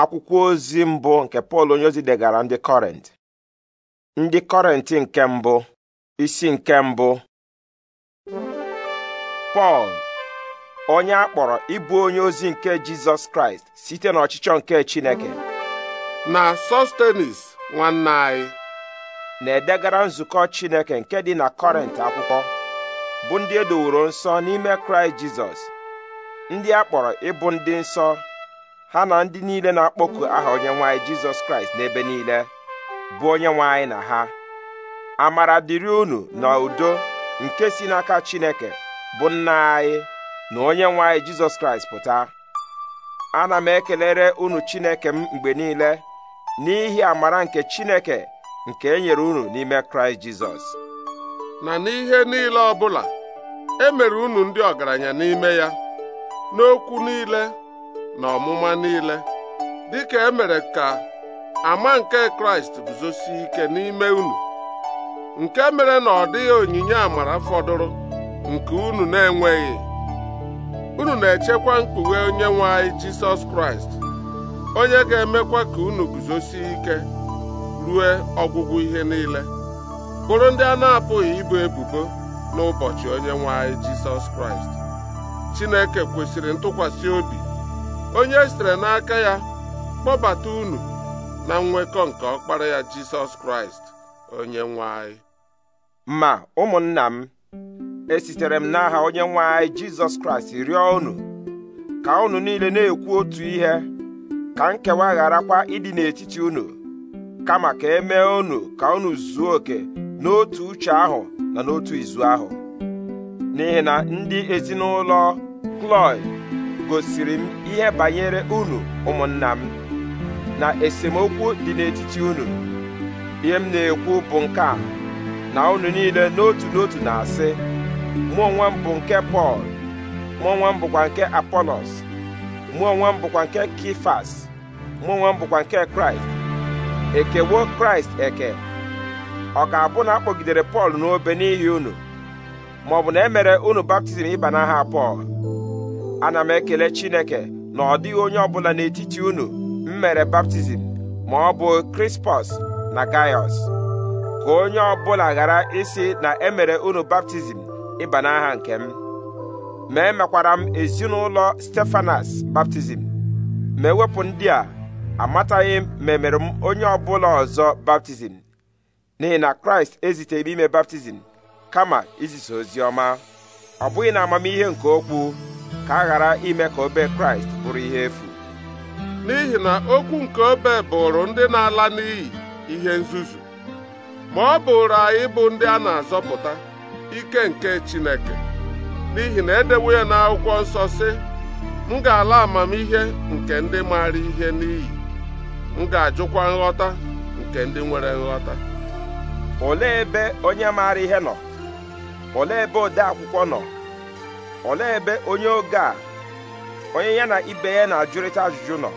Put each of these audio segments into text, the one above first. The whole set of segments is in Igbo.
akwụkwọ ozi mbụ nke pọl onyeozi degara ndị kọrent ndị kọrent nke mbụ isi nke mbụ pọl onye a kpọrọ ịbụ onye ozi nke jizọs kraịst site n'ọchịchọ nke chineke na sostenis nwanne anyị na-edegara nzukọ chineke nke dị na kọrent akwụkwọ bụ ndị edoworo nsọ n'ime kraịst jizọs ndị a kpọrọ ịbụ ndị nsọ ha na ndị niile na-akpọku aha onye nwanyị jizọs kraịst n'ebe niile bụ onye nwanyị na ha amara dịrị unu na udo nke si n'aka chineke bụ nna anyị na onye nwanyị jizọs kraịst pụta ana m ekelere unu chineke m mgbe niile n'ihi amara nke chineke nke e nyere unu n'ime kraịst jizọs na n'ihe niile ọbụla e mere unu ndị ọgaranya n'ime ya n'okwu niile na ọmụma niile dịka emere ka ama nke kraịst guzosi ike n'ime unu nke mere na ọ dịghị onyinye amara fọdụrụ nke unu na-enweghị unu na-echekwa mkpughe onye nwe anyị jisọs kraịst onye ga-emekwa ka unu guzosi ike rue ọgwụgwụ ihe niile bụrụ ndị a na-apụghị ibu ebubo n'ụbọchị onye nwe anyị jisọs kraịst chineke kwesịrị ntụkwasị obi onye e sitere n'aka ya kpọbata unu na nwekọ nke ọkpara ya jisọs kraịst onye nwe anyị. ma ụmụnna m esitere m n'aha onye nwe anyị jizọs kraịst rịọ unu ka unu niile na-ekwu otu ihe ka nkewa kwa ịdị n'etiti unu kama ka e mee unu ka unu zuo oke n'otu uche ahụ na n'otu izu ahụ n'ihi na ndị ezinụlọ Kloy gosiri m ihe banyere unu ụmụnna m na esemokwu dị n'etiti unu ihe m na-ekwu bụ nke a na unu niile n'otu n'otu na-asị mụ onwe m bụ nke Pọl mụ onwe m bụkwa nke Apolos mụ onwe m bụkwa nke Kifas mụ onwe m bụkwa nke Kraịst ekewo Kraịst eke ọ ka abụ na akpọgidere Pọl n'obe n'ihi unu maọbụ na e mere unu baptizim ịba n'aha Pọl ana m ekele chineke na ọ dịghị onye ọbụla n'etiti unu m mere baptizim ma ọ bụ krispọs na gaiọs ka onye ọbụla ghara isi na emere unu baptizim ịba n'aha nke m ma emekwara m ezinụlọ stefanas baptizim ma ewepụ ndị a amataghị m ma emere m onye ọbụla ọzọ baptizim n'ihi na kraịst eziteghị ime baptizim kama izisa ozi ọma ọ bụghị na amamihe nke okwu ka a ghara ime ka obe kraịst bụrụ ihe efu n'ihi na okwu nke obe bụrụ ndị na-ala n'iyi ihe nzuzu ma ọ bụrụ anyị bụ ndị a na-azọpụta ike nke Chineke n'ihi na edewo ya n'akwụkwọ nsọ si m ga-ala amamihe nke ndị maara ihe n'iyi m ga-ajụkwa nghọta nke ndị nwere nghọta olee ebe onye maara ihe nọ olee ebe ode akwụkwọ nọ olee ebe onye oge a onye ya na ibe ya na-ajụrịta ajụjụ nọ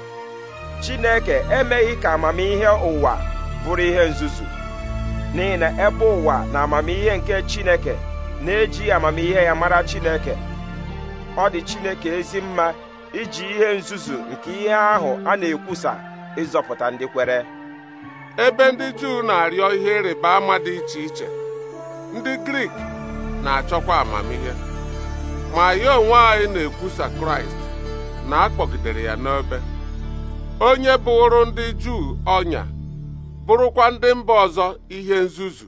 chineke emeghị ka amamihe ụwa bụrụ ihe nzuzu n'ihi na ebe ụwa na amamihe nke chineke na eji amamihe ya mara chineke ọ dị chineke ezi mma iji ihe nzuzu nke ihe ahụ a na-ekwusa ịzọpụta ndị kwere ebe ndị Juu na-arịọ ihe ịrịba ama dị iche iche ndị Grik na-achọkwa amamihe ma ya onwe anyị na-ekwusa kraịst na akpọgidere ya n'ebe, onye bụrụ ndị juu ọnya bụrụkwa ndị mba ọzọ ihe nzuzu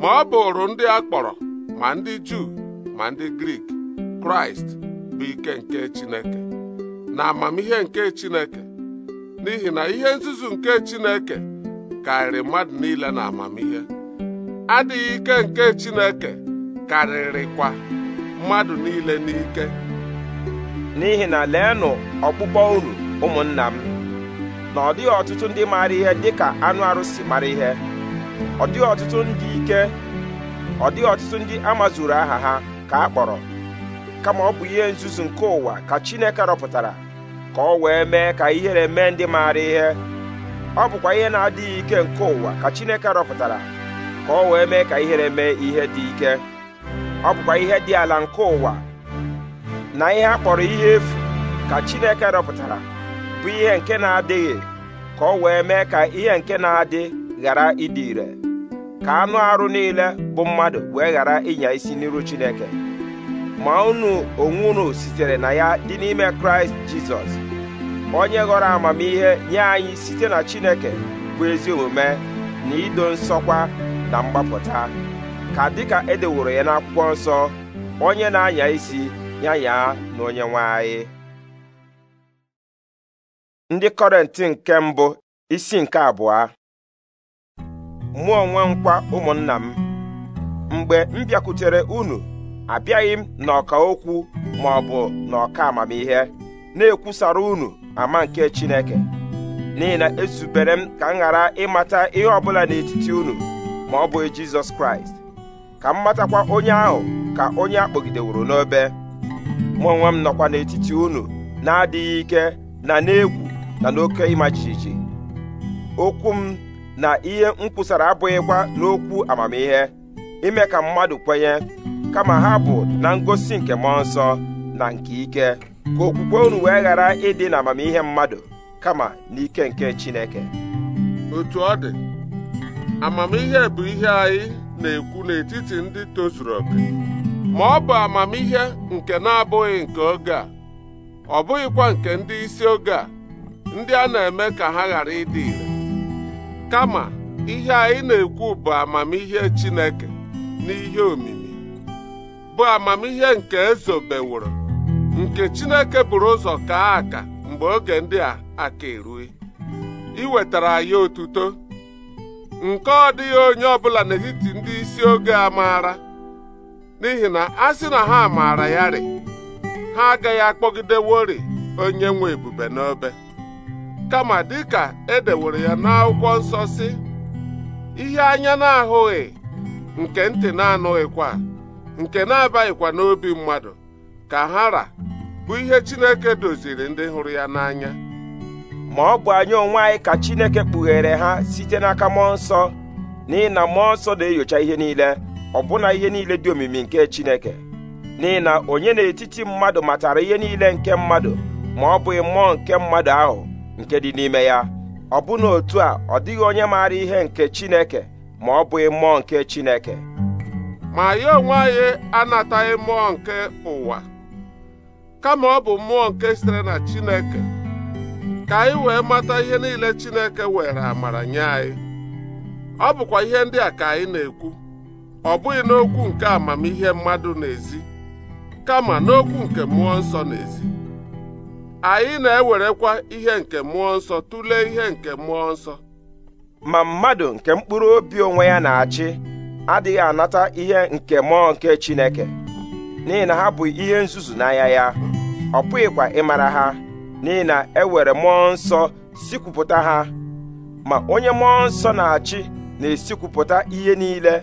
ma ọ bụrụ ndị a kpọrọ ma ndị juu ma ndị grik kraịst bụ ike nke chineke na amamihe nke chineke n'ihi na ihe nzuzu nke chineke karịrị mmadụ niile na amamihe adịghị ike nke chineke karịrịkwa mmadụ niile n'ike n'ihi na leenụ ọkpụkpọ unu ụmụnna m na ọ dịghị ọtụtụ ndị maara ihe dịka anụ arụsị mara ihe ọ dịghị ọtụtụ ndị ike ọ dịghị ọtụtụ ndị amazuru aha ha ka a kpọrọ kama ọ bụ ihe nzuzu nke ụwa ka Chineke rọpụtara ka ọ wee mee ka ihere mee ndị maara ihe ọ bụkwa ihe na-adịghị ike nke ụwa ka Chineke rọpụtara ka ọ wee mee ka ihere mee ihe dị ike ọ bụkwa ihe dị ala nke ụwa na ihe a kpọrọ ihe efu ka Chineke rọpụtara bụ ihe nke na-adịghị ka ọ wee mee ka ihe nke na-adị ghara ịdị ire ka anụ arụ niile bụ mmadụ wee ghara ịnya isi n'iru Chineke ma unu onwe unu sitere na ya dị n'ime Kraịst Jizọs onye ghọrọ amamihe nye anyị site na Chineke bụ ezi omume na ido nsọkwa na mgbapụta ka dịka e deworo ya n'akwụkwọ nsọ onye na-anya isi ya ya na onye nwanyị ndị kọrentị nke mbụ isi nke abụọ mụ onwe nkwa ụmụnna m mgbe m bịakwutere unu abịaghị m n'ọka okwu ma ọ bụ n'ọka amamihe na-ekwusara unu ama nke Chineke n'ihi na ezubere m ka m ghara ịmata ihe ọbụla n'etiti unu ma ọ bụ Jizọs Kraịst ka m matakwa onye ahụ ka onye a kpọgideworo n'obe mụ onwe m nọkwa n'etiti unu na-adịghị ike na n'egwu na n'oke ịma jijiji okwu m na ihe m kwusara abụghịkwa n'okwu amamihe ime ka mmadụ kwenye kama ha bụ na ngosi nke mmụọ nsọ na nke ike ka okwukwe unu wee ghara ịdị na amamihe mmadụ kama n'ike nke Chineke otu ọ dị amamihe bụ ihe anyị na-ekwu n'etiti ndị tozuru oke ma ọ bụ amamihe nke na-abụghị nke oge a ọ bụghịkwa nke ndị isi oge a ndị a na-eme ka ha ghara ịdị ire kama ihe anyị na-ekwu bụ amamihe Chineke n'ihe omimi bụ amamihe nke ezobeworo nke Chineke buru ụzọ kaa aka mgbe oge ndị a aka erue iwetara anyị otuto nke ọ dịghị onye ọ ọbụla n'etiti ndị isi oge a maara n'ihi na a sị na ha maara ya ha agaghị akpọgidewori onye nwe ebube n'obe kama dịka e dewere ya n'akwụkwọ nsọ sị ihe anya na-ahụghị nke ntị na-anụghịkwa nke na-abaghịkwa n'obi mmadụ ka ha ra bụ ihe Chineke doziri ndị hụrụ ya n'anya ma ọ bụ anyị onwe anyị ka Chineke kpughere ha site n'aka mmụọ nsọ n'ihi na mmụọ nsọ na-enyocha ihe niile ọbụna ihe niile dị omimi nke Chineke n'ihi na onye n'etiti mmadụ matara ihe niile nke mmadụ ma ọ bụghị mmụọ nke mmadụ ahụ nke dị n'ime ya ọbụna otu a ọ dịghị onye maara ihe nke Chineke ma ọ bụghị mmụọ nke Chineke ma anyị onwe anyị anataghị mmụọ nke ụwa kama ọ bụ mmụọ nke sitere na Chineke ka anyị wee mata ihe niile Chineke were amara nye anyị ọ bụkwa ihe ndị a ka anyị na-ekwu ọ bụghị n'okwu nke amamihe mmadụ n'ezi kama n'okwu nke mmụọ nsọ n'ezi anyị na-ewerekwa ihe nke mmụọ nsọ tụlee ihe nke mmụọ nsọ ma mmadụ nke mkpụrụ obi onwe ya na-achị adịghị anata ihe nke mmụọ nke Chineke n'ihi na ha bụ ihe nzuzu n'anya ya ọ pụghịkwa ịmara ha n'ihi na e ewere mmụọ nsọ sikwupụta ha ma onye mmụọ nsọ na-achị na-esikwupụta ihe niile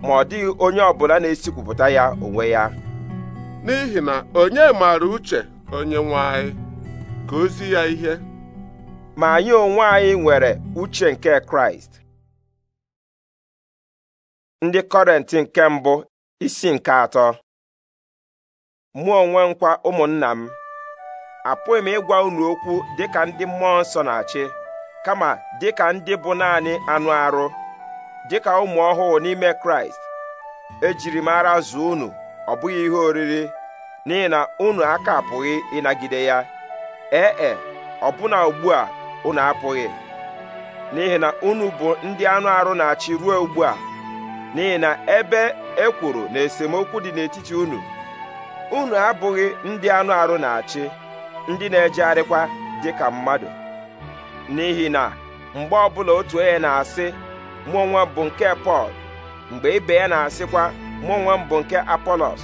ma ọ dịghị onye ọbụla na-esikwupụta ya onwe ya n'ihi na onye maara uche onye ka ozi ya ihe ma anyị onwe anyị nwere uche nke kraịst ndị kọrentị nke mbụ isi nke atọ mụọ onwe nkwa ụmụnna m apụghị m ịgwa unu okwu dịka ndị mmụọ nsọ na-achị kama dịka ndị bụ naanị anụ arụ dịka ụmụ ọhụụ n'ime kraịst ejiri m ara zuo unu ọ bụghị ihe oriri n'ihi na unu aka apụghị ịnagide ya ee e, e ọbụna ugbu a unu apụghị n'ihi na unu bụ ndị anụ arụ na-achị ruo ugbu a n'ihi na ebe e kwuru na esemokwu dị n'etiti unu unu abụghị ndị anụ arụ na-achị ndị na-ejegharịkwa dị ka mmadụ n'ihi na mgbe ọbụla otu onye na-asị mụ onwe bụ nke Pọl mgbe ibe ya na-asịkwa mụ onwe bụ nke Apolos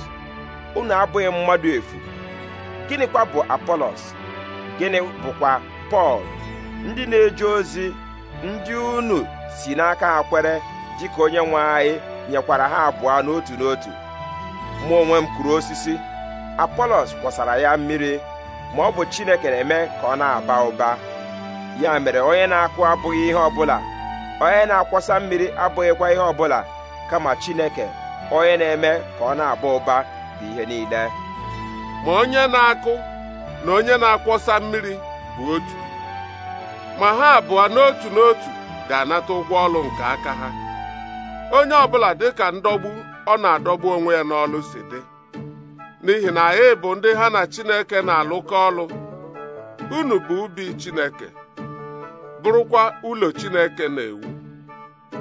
unu abụghị mmadụ efu gịnịkwa bụ Apolos gịnị bụkwa Pọl ndị na-eje ozi ndị unu si n'aka ha kwere dịka onye nwe anyị nyekwara ha abụọ n'otu n'otu mụ onwe m osisi Apolos kwọsara ya mmiri ma ọ bụ chineke na-eme ka ọ na-aba ụba ya mere onye na-akụ abụghị ihe ọbụla onye na-akwọsa mmiri abụghịkwa ihe ọ bụla kama chineke onye na-eme ka ọ na-aba ụba bụ ihe niile ma onye na-akụ na onye na-akwọsa mmiri bụ otu ma ha abụọ n'otu n'otu ga-anata ụgwọ ọlụ nke aka ha onye ọbụla ka ndọgbu ọ na-adọgbu onwe ya n'ọlụ si dị n'ihi na anyị bụ ndị ha na Chineke na-alụkọ ọlụ unu bụ ubi Chineke bụrụkwa ụlọ Chineke na-ewu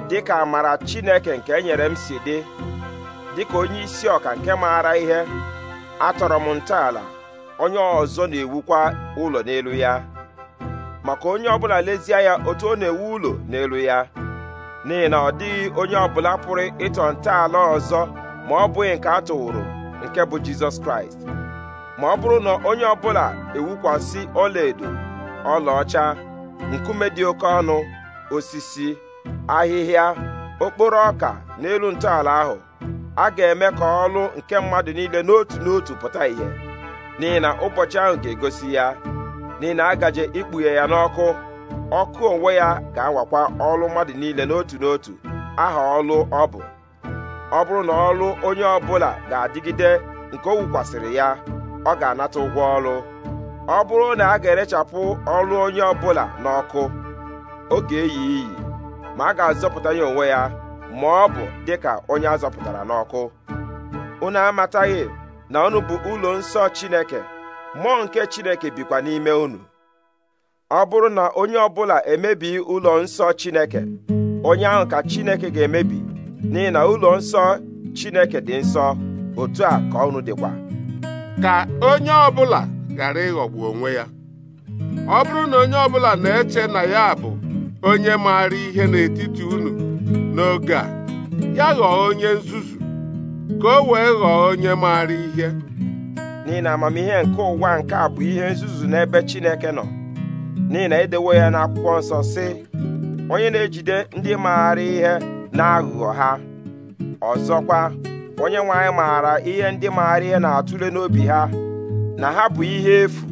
dịka amara Chineke nke e nyere m si dị dịka onye isi ọka nke maara ihe atọrọ m ntọala onye ọzọ na-ewukwa ụlọ n'elu ya maka onye ọbụla lezie ya otu ọ na-ewu ụlọ n'elu ya n'ihi na ọ dịghị onye ọbụla pụrụ ịtọ ntọala ọzọ ma ọ bụghị nke a tụwụrụ nke bụ jizọs kraịst ma ọ bụrụ na onye ọbụla ewukwasị ọlaedo ọlaọcha nkume dị oke ọnụ osisi ahịhịa okporo ọka n'elu ntọala ahụ a ga-eme ka ọlụ nke mmadụ niile n'otu n'otu pụta ìhè n'ihi na ụbọchị ahụ ga-egosi ya n'ihi na a gaje ikpughe ya n'ọkụ ọkụ onwe ya ga-awakwa ọlụ mmadụ niile n'otu n'otu aha ọlụ ọ bụ ọ bụrụ na ọrụ onye ọbụla ga-adịgide nke o wukwasịrị ya ọ ga-anata ụgwọ ọrụ ọ bụrụ na a ga-erechapụ ọrụ onye ọbụla n'ọkụ ọ ga-eyi iyi ma a ga-azọpụta ya onwe ya ma ọ bụ dịka onye a zọpụtara n'ọkụ unu amataghị na unu bụ ụlọ nsọ Chineke mmụọ nke Chineke bikwa n'ime unu ọ bụrụ na onye ọbụla emebi ụlọ nsọ Chineke onye ahụ ka Chineke ga-emebi n'ihi na ụlọ nsọ Chineke dị nsọ otu a ka ọnụ dịkwa ka onye ọbụla ghara ịghọgbu onwe ya ọ bụrụ na onye ọbụla na-eche na ya bụ onye maara ihe n'etiti unu n'oge a ya ghọọ onye nzuzu ka o wee ghọọ onye maara ihe n'ihi na amamihe nke ụwa nke a bụ ihe nzuzu n'ebe Chineke nọ n'ihi na edewo ya n'akwụkwọ nsọ sị onye na-ejide ndị maara ihe n'aghụghọ ha ọzọkwa onye nwanyị maara ihe ndị maara ihe na-atụle n'obi ha na ha bụ ihe efu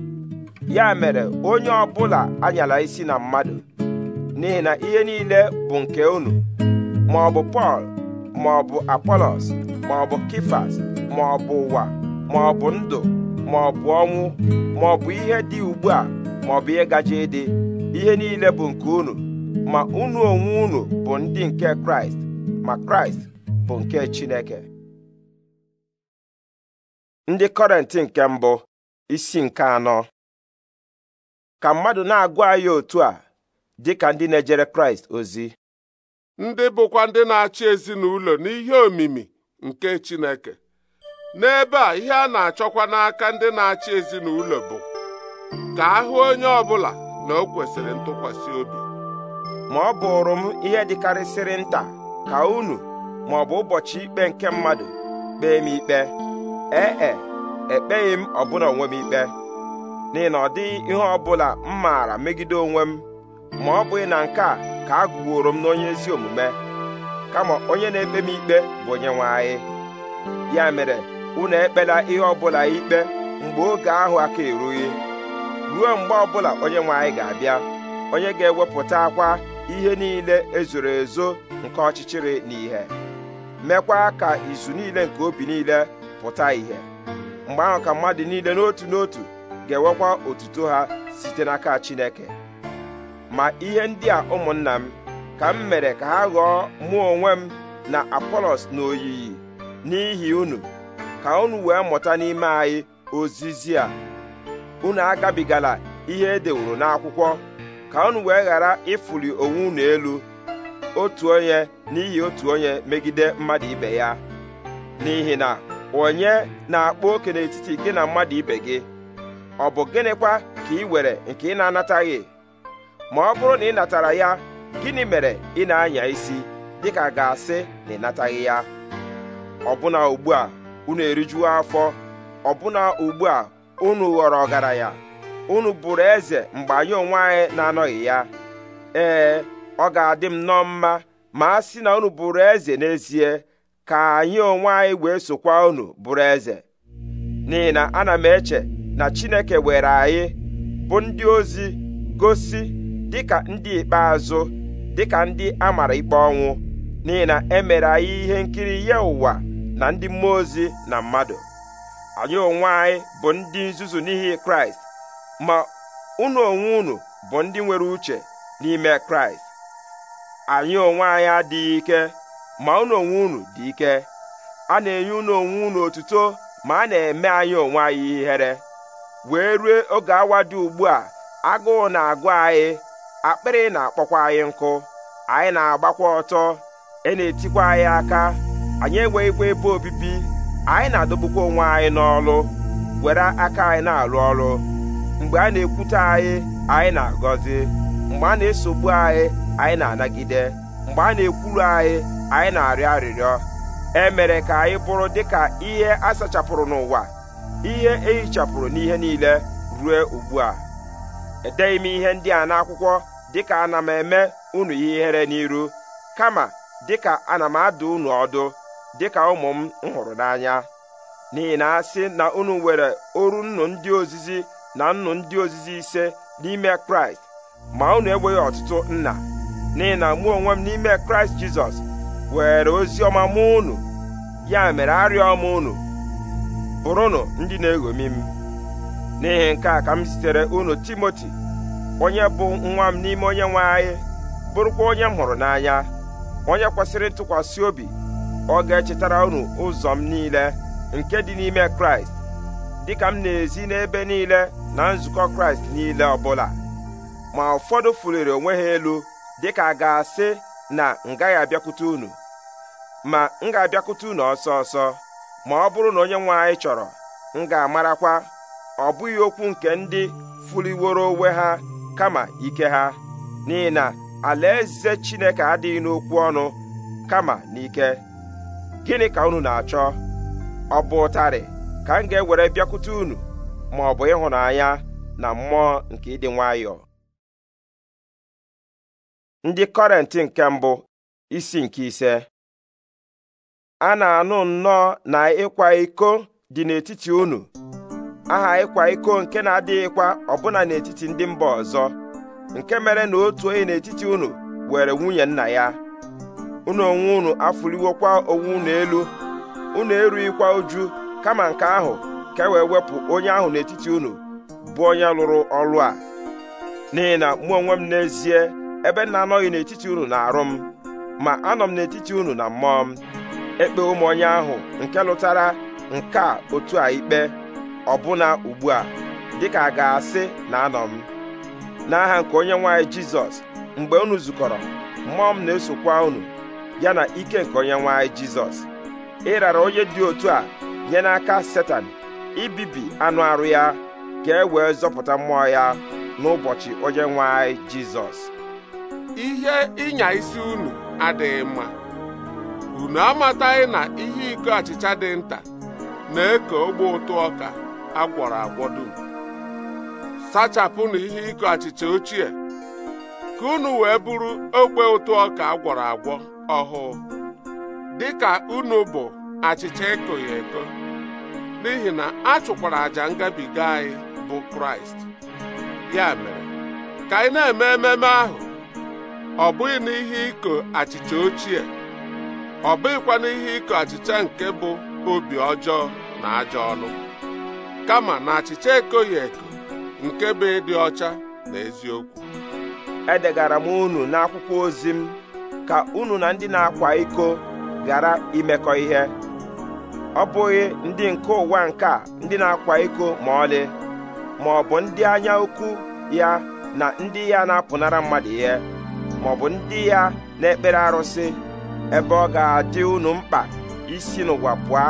ya mere onye ọbụla anyala isi na mmadụ n'ihi na ihe niile bụ nke unu ma ọ bụ Pọl ma ọ bụ Apolos ma ọ bụ Kifas ma ọ bụ ụwa ma ọ bụ ndụ ma ọ bụ ọnwụ ma ọ bụ ihe dị ugbu a ma ọ bụ ihe gaje ịdị ihe niile bụ nke unu ma unu onwe unu bụ ndị nke kraịst ma kraịst bụ nke chineke ndị kọrentị nke mbụ isi nke anọ ka mmadụ na-agwa anyị otu a dị ka ndị na-ejere kraịst ozi ndị bụkwa ndị na-achị ezinụlọ n'ihe omimi nke chineke n'ebe a ihe a na-achọkwa n'aka ndị na-achị ezinụlọ bụ ka ahụ onye ọ bụla na o kwesịrị ntụkwasị obi ma ọ bụrụ m ihe dịkarịsịrị nta ka unu ma ọ bụ ụbọchị ikpe nke mmadụ kpee m ikpe ee e, ekpeghị m ọbụla onwe m ikpe n'ihi na ọ dịghị ihe ọ bụla m maara megide onwe m ma ọ bụghị na nke a ka a gụworo m n'onye ezi omume kama onye na-ekpe m ikpe bụ onye nwe anyị ya mere unu ekpela ihe ọbụla ikpe mgbe oge ahụ aka erughị ruo mgbe ọbụla onye nwe anyị ga-abịa onye ga-ewepụta akwa ihe niile ezoro ezo nke ọchịchịrị na ìhè ka izu niile nke obi niile pụta ìhè mgbe ahụ ka mmadụ niile n'otu n'otu ga-ewekwa otuto ha site n'aka Chineke ma ihe ndị a ụmụnna m ka m mere ka ha ghọọ mụ onwe m na Apolos na n'ihi unu ka unu wee mụta n'ime anyị ozizi a unu agabigala ihe edeworo n'akwụkwọ ka unu wee ghara ịfụli onwe unu elu otu onye n'ihi otu onye megide mmadụ ibe ya n'ihi na onye na-akpa oke n'etiti gị na mmadụ ibe gị ọ bụ gịnịkwa ka ị were nke ị na-anataghị ma ọ bụrụ na ị natara ya gịnị mere ị na-anya isi dịka ga-asị na ị nataghị ya ọbụna ugbu a unu erijuo afọ ọbụna ugbu a unu ghọrọ ọgaranya unu bụrụ eze mgbe anyị onwe anyị na-anọghị ya ee ọ ga-adị m nọ mma ma a sị na unu bụrụ eze n'ezie ka anyị onwe anyị wee sokwa unu bụrụ eze n'ihi na ana m eche na Chineke were anyị bụ ndị ozi gosi dịka ndị ikpeazụ dịka ndị a mara ikpe ọnwụ n'ihi na e mere anyị ihe nkiri ya ụwa na ndị mmụọ ozi na mmadụ anyị onwe anyị bụ ndị nzuzu n'ihi Kraịst ma unu onwe unu bụ ndị nwere uche n'ime kraịst anyị onwe anyị adịghị ike ma unu onwe unu dị ike a na-enye unu onwe unu otuto ma a na-eme anyị onwe anyị ihere wee rue oge awa dị ugbu a agụụ na-agụ anyị akpịrị na-akpọkwa anyị nkụ anyị na-agbakwa ọtọ e na-etikwa anyị aka anyị enweghịkwa ebe obibi anyị na-adọgbukwa onwe anyị n'ọlụ were aka anyị na-alụ ọrụ mgbe a na-ekwute anyị anyị na-agọzi mgbe a na-esogbu anyị anyị na-anagide mgbe a na-ekwuru anyị anyị na-arịọ arịrịọ e mere ka anyị bụrụ dịka ihe a sachapụrụ n'ụwa ihe ehichapụrụ n'ihe niile ruo ugbu a edeghị m ihe ndị a n'akwụkwọ dịka ana m eme unu ihere n'iru kama dịka ana m adụ unu ọdụ dịka ụmụ m hụrụ n'anya n'ihi na asị na unu nwere oru nnu ndị ozizi na nnụ ndị ozizi ise n'ime kraịst ma unu enweghị ọtụtụ nna n'ihi na mụ onwe m n'ime kraịst jizọs were ozi ọma mụ unu ya mere arịọ m unu bụrụnụ ndị na-eṅomi m n'ihi nke a ka m zitere unu timoti onye bụ nwa m n'ime onye nwe anyị bụrụkwa onye m hụrụ n'anya onye kwesịrị ntụkwasị obi ọ ga-echetara unu ụzọ m niile nke dị n'ime kraịst dịka m na-ezi n'ebe niile na nzukọ kraịst niile ọbụla ma ụfọdụ fuliri onwe ha elu dịka a ga-asị na m abịakwute unu ma m ga-abịakwute unu ọsọ ọsọ ma ọ bụrụ na onye nwe anyị chọrọ m ga-amarakwa ọ bụghị okwu nke ndị fuliworo onwe ha kama ike ha n'ihi na alaeze chineke adịghị n'okwu ọnụ kama n'ike gịnị ka unu na-achọ ọ bụ ụtarị ka m ga-ewere bịakwute unu ma ọ bụ ịhụnanya na mmụọ nke ịdị nwayọọ ndị kọrentị nke mbụ isi nke ise a na-anụ nnọọ na ịkwa iko dị n'etiti unu aha ịkwa iko nke na-adịghịkwa ọbụna n'etiti ndị mba ọzọ nke mere na otu onye n'etiti unu were nwunye nna ya unu onwe unu afụliwokwa onwe unu elu unu erughịkwa uju kama nke ahụ ka e wee wepụ onye ahụ n'etiti unu bụ onye lụrụ ọlụ a n'ihi na mụ onwe m n'ezie ebe m na-anọghị n'etiti unu na-arụ m ma anọ m n'etiti unu na mmụọ m ekpe ụmụ onye ahụ nke lụtara nke a otu a ikpe ọbụna ugbu a dịka a ga-asị na anọ m n'aha nke onye nwaanyị jizọs mgbe unu zukọrọ mmụọ m na-esokwa unu ya na ike nke onye nwaanyị jizọs ịrara onye dị otu a nye n'aka setan ibibi anụ arụ ya ka e wee zọpụta mmụọ ya n'ụbọchị onye nwe anyị jizọs ihe ịnya isi unu adịghị mma unu amataghị na ihe iko achịcha dị nta na-eke ogbe ụtụ ọka agwọrọ agwọ dum sachapụnụ ihe iko achịcha ochie ka unu wee bụrụ ogbe ụtụ ọka agwọrọ agwọ ọhụụ dịka unu bụ achịcha ekoghị eko n'ihi na a chụkwara àjà ngabiga anyị bụ kraịst ya mere ka anyị na-eme ememe ahụ ọ bụghị n'ihe iko achịcha ochie ọ bụghịkwa n'ihe iko achịcha nke bụ obi ọjọọ na ajọ ọnụ kama na achịcha ekoghị eko nke bụ ịdị ọcha na eziokwu edegara m unu n'akwụkwọ ozi m ka unu na ndị na-akwa iko ghara imekọ ihe ọ bụghị ndị nke ụwa nke a ndị na-akwa iko ma ọlị ma ọ bụ ndị anya ukwu ya na ndị ya na-apụnara mmadụ ihe ma ọ bụ ndị ya na-ekpere arụsị ebe ọ ga-adị unu mkpa isi n'ụwa pụọ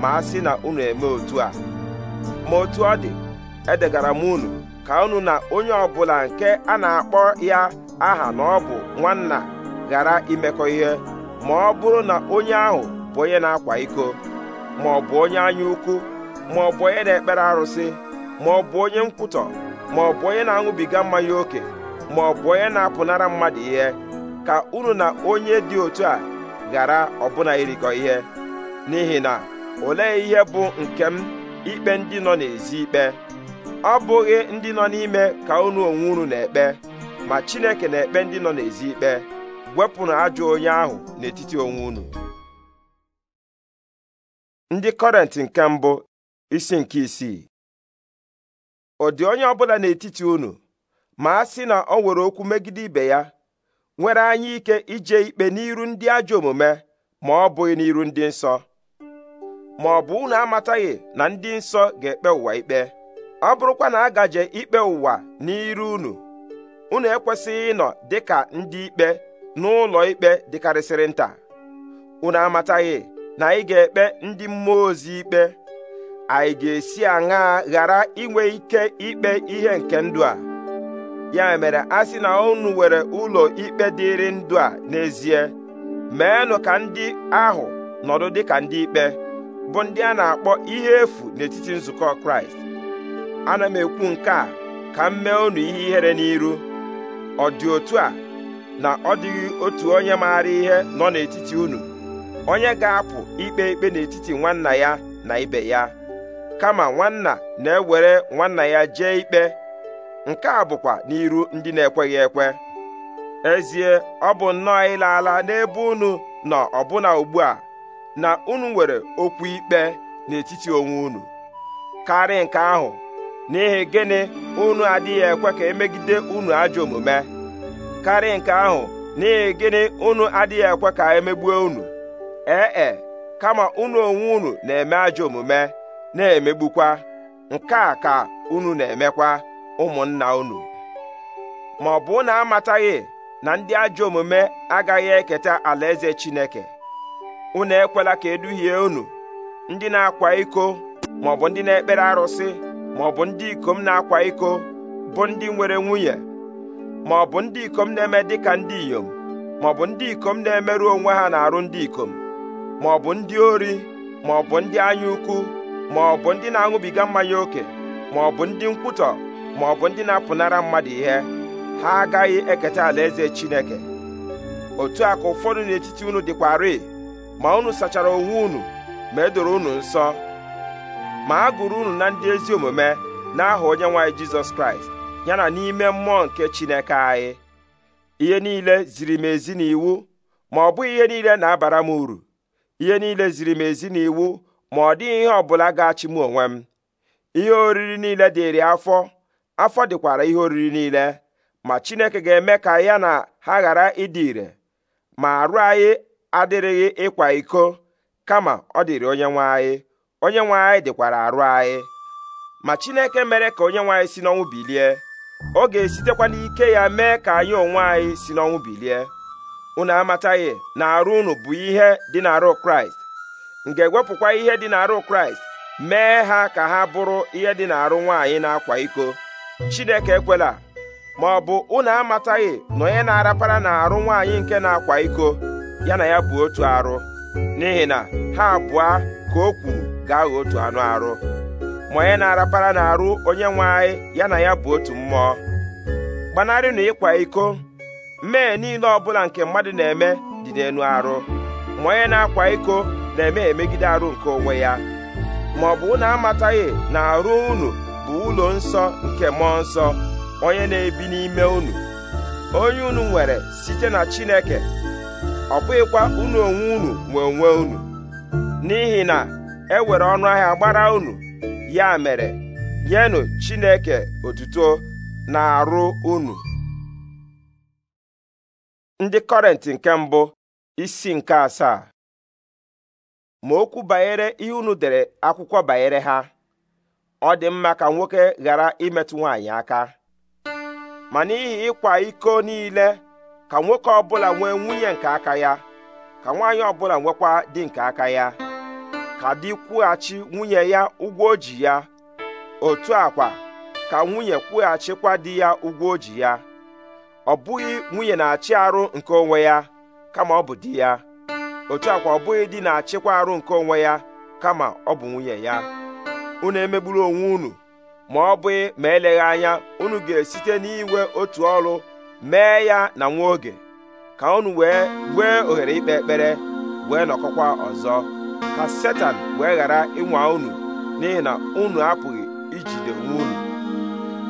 ma a sị na unu eme otu a ma otu ọ dị edegara m unu ka unu na onye ọbụla nke a na-akpọ ya aha na ọ bụ nwanna ghara imekọ ihe ma ọ bụrụ na onye ahụ bụ onye na-akwa iko ma ọ bụ onye anya ukwu ma ọ bụ onye na-ekpere arụsị ma ọ bụ onye nkwutọ ma ọ bụ onye na-aṅụbiga mmanya ókè ma ọ bụ onye na-apụnara mmadụ ihe ka unu na onye dị otu a ghara ọbụna irikọ ihe n'ihi na olee ihe bụ nke m ikpe ndị nọ n'ezi ikpe ọ bụghị ndị nọ n'ime ka unu onwe unu na-ekpe ma Chineke na-ekpe ndị nọ n'ezi ikpe wepụnụ ajọ onye ahụ n'etiti onwe unu ndị kọrent nke mbụ isi nke isii ọ dị onye ọbụla n'etiti unu ma a sị na ọ nwere okwu megide ibe ya nwere anya ike ije ikpe n'iru ndị ajọ omume ma ọ bụghị n'iru ndị nsọ ma ọ bụ unu amataghị na ndị nsọ ga-ekpe ụwa ikpe ọ bụrụkwa na agaje ikpe ụwa n'iru unu unu ekwesịghị ịnọ dịka ndị ikpe n'ụlọ ikpe dịkarịsịrị nta unu amataghị na anyị ga-ekpe ndị mmụọ ozi ikpe anyị ga-esi aṅaa ghara inwe ike ikpe ihe nke ndụ a ya mere a sị na unu nwere ụlọ ikpe dịịrị ndụ a n'ezie meenụ ka ndị ahụ nọdụ dịka ndị ikpe bụ ndị a na-akpọ ihe efu n'etiti nzukọ Kraịst ana m ekwu nke a ka m mee unu ihe ihere n'iru ọ dị otu a na ọ dịghị otu onye maara ihe nọ n'etiti unu onye ga-apụ ikpe ikpe n'etiti nwanna ya na ibe ya kama nwanna na-ewere nwanna ya jee ikpe nke a bụkwa n'iru ndị na-ekweghị ekwe ezie ọ bụ nnọọ ịla ala n'ebe unu nọ ọbụna ugbu a na unu nwere okwu ikpe n'etiti onwe unu karị nke ahụ n'ihi gịnị unu adịghị ekwe ka emegide unu ajọ omume karị nke ahụ n'ihi gịnị unu adịghị ekwe ka emegbuo unu ee e kama unu onwe unu na-eme ajọ omume na-emegbukwa nke a ka unu na-emekwa ụmụnna unu ma ọ bụ na amataghị na ndị ajọ omume agaghị eketa alaeze Chineke unu ekwela ka eduhie unu ndị na-akwa iko ma ọ bụ ndị na-ekpere arụsị ma ọ bụ ndị ikom na-akwa iko bụ ndị nwere nwunye ma ọ bụ ndị ikom na-eme dịka ndị inyom ma ọ bụ ndị ikom na-emerụ onwe ha na arụ ndị ikom ma ọ bụ ndị ori ma ọ bụ ndị anya ukwu ma ọ bụ ndị na-aṅụbiga mmanya ókè ma ọ bụ ndị nkwutọ ma ọ bụ ndị na-apụnara mmadụ ihe ha agaghị eketa alaeze Chineke otu a ka ụfọdụ n'etiti unu dịkwarị ma unu sachara onwe unu ma edoro unu nsọ ma a gụrụ unu na ndị ezi omume n'aha onye nwaanyị Jizọs Kraịst ya na n'ime mmụọ nke Chineke anyị ihe niile ziri m ezi n'iwu ma ọ bụghị ihe niile na-abara m uru ihe niile ziri m ezi na iwu ma ọ dịghị ihe ọbụla ga-achị m onwe m ihe oriri niile dịrị afọ afọ dịkwara ihe oriri niile ma Chineke ga-eme ka ya na ha ghara ịdị ire ma arụ anyị adịrịghị ịkwa iko kama ọ dịrị onye nwe anyị onye nwe anyị dịkwara arụ anyị ma Chineke mere ka onye nwe anyị si n'ọnwụ bilie ọ ga-esitekwa n'ike ya mee ka anyị onwe anyị si n'ọnwụ bilie unu amataghị na arụ unu bụ ihe dị n'arụ kraịst m wepụkwa ewepụkwa ihe dị n'arụ kraịst mee ha ka ha bụrụ ihe dị n'arụ nwaanyị na-akwa iko chineke ekwela ma ọ bụ unu amataghị na onye na-arapara na-arụ nwaanyị nke na-akwa iko ya na ya bụ otu arụ n'ihi na ha abụọ ka o kwuru gaghị otu anụ arụ ma onye na-arapara na-arụ onye nwe anyị ya na ya bụ otu mmụọ gbanarịnụ ịkwa iko Mee niile ọbụla nke mmadụ na-eme dị n'elu arụ ma onye na-akwa iko na-eme emegide arụ nke onwe ya ma ọ bụ unu amataghị na arụ unu bụ ụlọ nsọ nke mmụọ nsọ onye na-ebi n'ime unu onye unu nwere site na Chineke ọ bụghịkwa unu onwe unu nwe onwe unu n'ihi na e nwere ọnụ ahịa gbara unu ya mere nyenụ Chineke otuto na arụ unu ndị kọrenti nke mbụ isi nke asaa ma okwu banyere ihe unu dere akwụkwọ banyere ha ọ dị mma ka nwoke ghara imetụ nwaanyị aka ma n'ihi ịkwa iko niile ka nwoke ọbụla nwee nwunye nke aka ya ka nwaanyị ọbụla nwekwa dị nke aka ya ka dị kwụghachi nwunye ya ụgwọ o ya otu akwa ka nwunye kwụghachikwa di ya ụgwọ o ya ọ bụghị nwunye na-achị arụ nke onwe ya kama ọ bụ di ya otu akwa ọ bụghị di na-achịkwa arụ nke onwe ya kama ọ bụ nwunye ya unu emegburu onwe unu ma ọ bụghị ma eleghị anya unu ga-esite n'iwe otu ọrụ mee ya na nwa oge ka unu wee wee ohere ikpe ekpere wee nọkọkwa ọzọ ka setan wee ghara ịnwa unu n'ihi na unu apụghị ijide onwe unu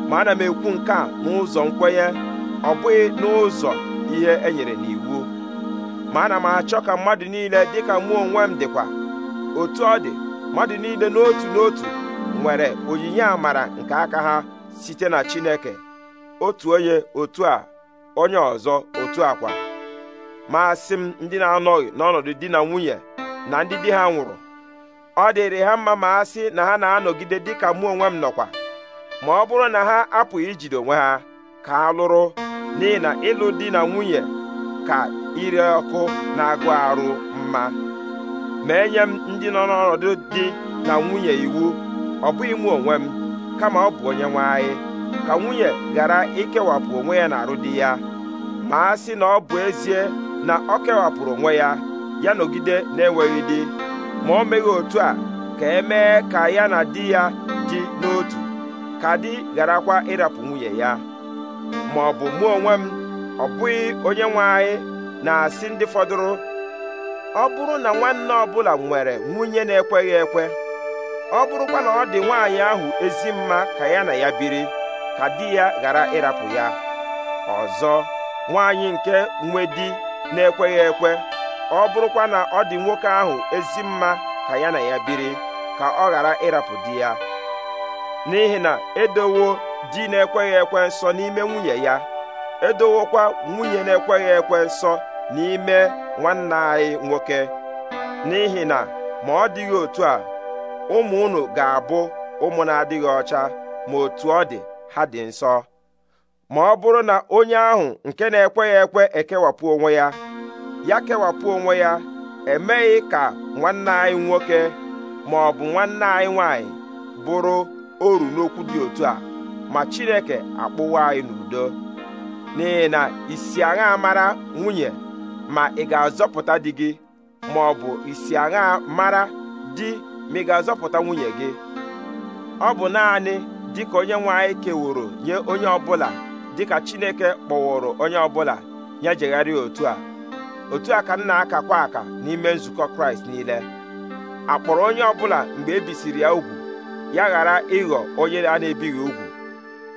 ma ana m ekwu nke a n'ụzọ nkwenye ọ bụghị n'ụzọ ihe e nyere n'iwu ma ana m achọ ka mmadụ niile dịka mụ onwe m dịkwa otu ọ dị mmadụ niile n'otu n'otu nwere onyinye amara nke aka ha site na Chineke otu onye otu a onye ọzọ otu akwa ma asị m ndị na-anọghị n'ọnọdụ di na nwunye na ndị di ha nwụrụ ọ dịrị ha mma ma asị na ha na-anọgide dịka mụ onwe m nọkwa ma ọ bụrụ na ha apụghị ijide onwe ha ka ha lụrụ n'ihi na ịlụ di na nwunye ka ire ọkụ na-agụ arụ mma ma e nye m ndị nọ n'ọnọdụ di na nwunye iwu ọ bụghị mụ onwe m kama ọ bụ onye nwe anyị ka nwunye ghara ikewapụ onwe ya na arụ di ya ma a sị na ọ bụ ezie na ọ kewapụrụ onwe ya ya nọgide na-enweghị di ma o meghị otu a ka e mee ka ya na di ya dị n'otu ka di gharakwa ịrapụ nwunye ya ma ọ bụ mụ onwe m ọ bụghị onye nwe anyị na-asị ndị fọdụrụ ọ bụrụ na nwanne ọbụla nwere nwunye na-ekweghị ekwe ọ bụrụkwa na ọ dị nwaanyị ahụ ezi mma ka ya na ya biri ka di ya ghara ịrapụ ya ọzọ nwaanyị nke nwe di na-ekweghị ekwe ọ bụrụkwa na ọ dị nwoke ahụ ezi mma ka ya na ya biri ka ọ ghara ịrapụ di ya n'ihi na edowo di na-ekweghị ekwe nsọ n'ime nwunye ya edowokwa nwunye na-ekweghị ekwe nsọ n'ime nwanna anyị nwoke n'ihi na ma ọ dịghị otu a ụmụ unu ga-abụ ụmụ na-adịghị ọcha ma otu ọ dị ha dị nsọ ma ọ bụrụ na onye ahụ nke na-ekweghị ekwe ekewapụ onwe ya ya kewapụ onwe ya emeghị ka nwanne anyị nwoke ma ọ bụ nwanne anyị nwanyị bụrụ oru n'okwu dị otu a ma chineke akpụwa anyị n'udo n'ihi na isi agha mara nwunye ma ị ga-azọpụta di gị ma ọ bụ isi agha mara di ma ị ga-azọpụta nwunye gị ọ bụ naanị dịka onye nwe anyị keworo nye onye ọbụla dịka chineke kpọwụrụ onye ọbụla nye otu a otu a ka nna aka akakwa aka n'ime nzukọ kraịst niile akpọrọ onye ọbụla mgbe ebisiri ya ugwu ya ghara ịghọ onye a na-ebighị ugwu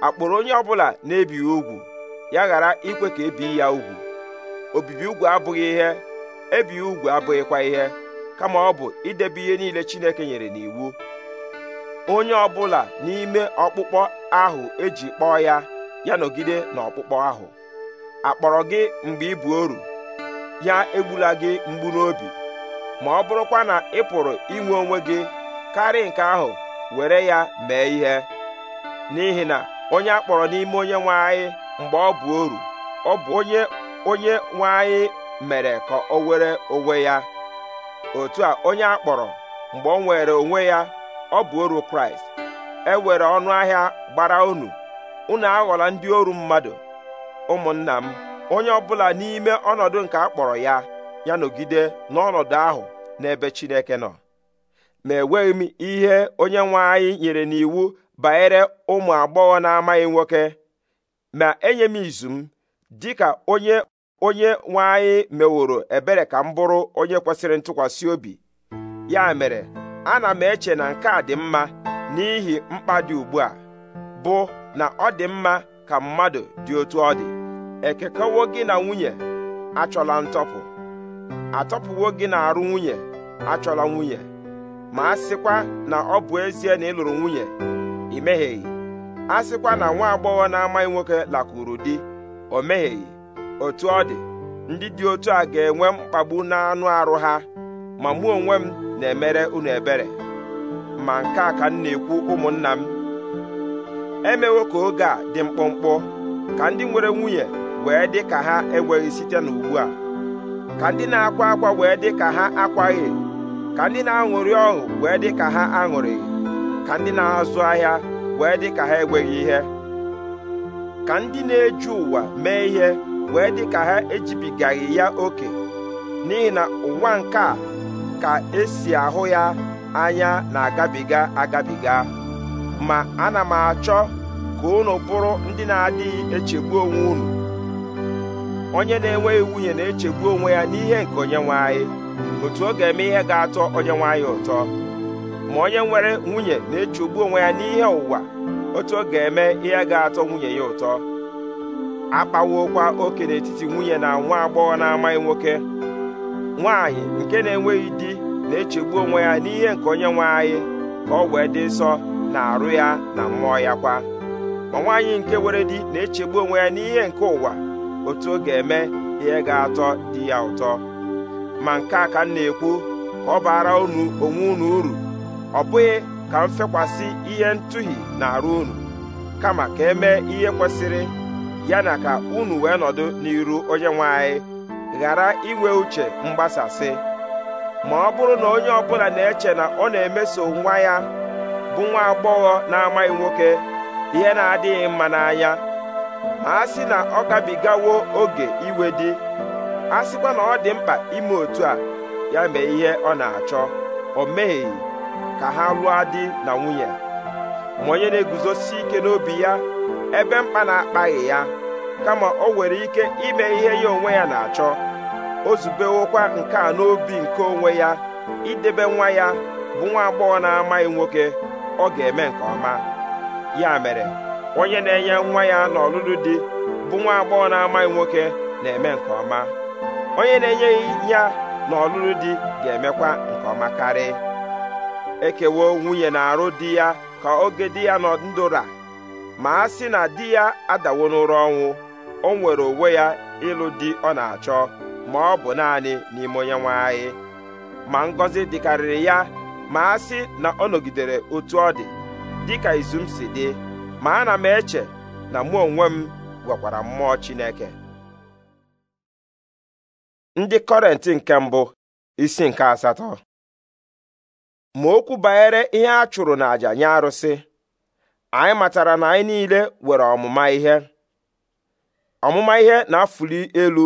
akpụrụ onye ọbụla na-ebighị ugwu ya ghara ikwe ka ebii ya ugwu obibi ugwu abụghị ihe ebighị ugwu abụghịkwa ihe kama ọ bụ idebe ihe niile Chineke nyere n'iwu onye ọbụla n'ime ọkpụkpọ ahụ eji kpọọ ya ya nọgide n'ọkpụkpọ ahụ akpọrọ gị mgbe ị bụ oru ya egbula gị mgbu n'obi ma ọ bụrụkwa na ị pụrụ inwe onwe gị karị nke ahụ were ya mee ihe n'ihi na onye akpọrọ n'ime onye nwanyị mgbe ọ bụ oru ọ bụ onye onye nwe mere ka o were onwe ya otu a onye akpọrọ mgbe o nwere onwe ya ọ bụ oru kraịst e were ọnụ ahịa gbara unu unu aghọla ndị oru mmadụ ụmụnna m onye ọbụla n'ime ọnọdụ nke a kpọrọ ya ya nọgide n'ọnọdụ ahụ n'ebe Chineke nọ ma enweghị m ihe onye nwe nyere n'iwu banyere ụmụ agbọghọ na-amaghị nwoke ma enye m izu m dịka onye onye nwanyị meworo ebere ka m bụrụ onye kwesịrị ntụkwasị obi ya mere ana m eche na nke a dị mma n'ihi mkpa dị ugbu a bụ na ọ dị mma ka mmadụ dị otu ọ dị ekekọwo gị na nwunye achọla ntọpụ atọpụwo gị na arụ nwunye achọla nwunye ma a sịkwa na ọ bụ ezie na ị lụrụ nwunye ị mehieghị a sịkwa na nwa agbọghọ na-amaghị nwoke lakwuru di o megheghị, otu ọ dị ndị dị otu a ga-enwe mkpagbu n'anụ arụ ha ma mụ onwe m na-emere unu ebere ma nke a ka m na-ekwu ụmụnna m emewo ka oge a dị mkpụmkpụ ka ndị nwere nwunye wee dị ka ha enweghị site n'ugbu a ka ndị na-akwa akwa wee dị ka ha akwaghị ka ndị na-aṅụrị ọṅụ wee dị ka ha aṅụrịghị ka ndị na-azụ ahịa wee dị ka ha enweghị ihe ka ndị na eji ụwa mee ihe wee dị ka ha ejibigaghị ya oke n'ihi na ụwa nke a ka esi ahụ ya anya na-agabiga agabiga ma ana m achọ ka unu bụrụ ndị na-adịghị echegbu onwe unu onye na-enweghị nwunye na-echegbu onwe ya n'ihe nke onye nwe anyị otu ọ ga-eme ihe ga-atọ onye nwe ụtọ ma onye nwere nwunye na-echegbu onwe ya n'ihe ụwa otu ọ ga-eme ihe ga-atọ nwunye ya ụtọ akpawokwa oke n'etiti nwunye na nwa agbọghọ na-amaghị nwoke nwaanyị nke na-enweghị di na-echegbu onwe ya n'ihe nke onye nwe anyị ka ọ wee dị nsọ na arụ ya na mmụọ ya kwa ma nwaanyị nke were di na-echegbu onwe ya n'ihe nke ụwa otu ọ ga-eme ihe ga-atọ di ya ụtọ ma nke a ka m na-ekwu ka ọ baara unu onwe unu uru ọ bụghị ka m fekwasị ihe ntụhi na-arụ unu kama ka emee ihe kwesịrị ya na ka unu wee nọdụ n'iru onye nwanyị ghara inwe uche mgbasasị ma ọ bụrụ na onye ọbụla na-eche na ọ na-emeso nwa ya bụ nwa agbọghọ na-amaghị nwoke ihe na-adịghị mma n'anya ma a sị na ọ gabigawo oge iwe di a sịkwa na ọ dị mkpa ime otu a ya mee ihe ọ na-achọ o meghị ka ha lụọ di na nwunye ma onye na-eguzosi ike n'obi ya ebe mkpa na-akpaghị ya kama o nwere ike ime ihe ya onwe ya na-achọ o zubewokwa nke a n'obi nke onwe ya idebe nwa ya bụ nwa agbọghọ na-amaghị nwoke ọ ga-eme nke ọma ya mere onye na-enye nwa ya n'ọlụlụ di bụ nwa agbọghọ na-amaghị nwoke na-eme nke ọma onye na enye ya n'ọlụlụ di ga-emekwa nke ọma karịa. ekewo nwunye na-arụ di ya ka oge di ya nọ ndụra ma a sị na di ya adawo n'ụra ọnwụ o nwere onwe ya ịlụ di ọ na-achọ ma ọ bụ naanị n'ime onye nwe anyị ma ngọzi dịkarịrị ya ma a sị na ọ nọgidere otu ọ dị dịka izu m si dị ma ana m eche na mụ onwe m gwakwara mmụọ Chineke ndị kọrenti nke mbụ isi nke asatọ ma okwu banyere ihe a chụrụ n'àjà nye arụsị anyị matara na anyị niile nwere ọmụma ihe ọmụma ihe na-afụli elu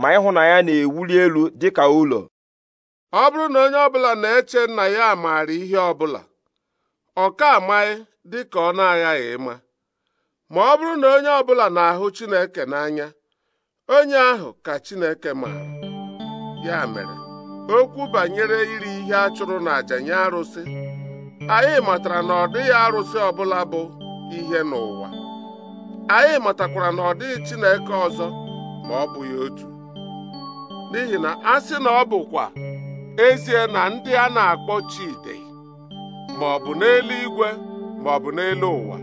ma ịhụnanya na-ewuli elu dị ka ụlọ ọ bụrụ na onye ọbụla na-eche nna ya maara ihe ọbụla ọ ka amaghị dị ka ọ na-aghaghị ịma ma ọ bụrụ na onye ọbụla na-ahụ Chineke n'anya onye ahụ ka Chineke maara ya mere okwu banyere iri ihe a chụrụ n'àjà nye arụsị anyị matara na ọ dịghị arụsị ọbụla bụ ihe n'ụwa anyị matakwara na ọ dịghị Chineke ọzọ ma ọ bụghị otu n'ihi na a sị na ọ bụkwa ezie na ndị a na-akpọ Chide ma ọ bụ n'eluigwe ma ọ bụ n'elu ụwa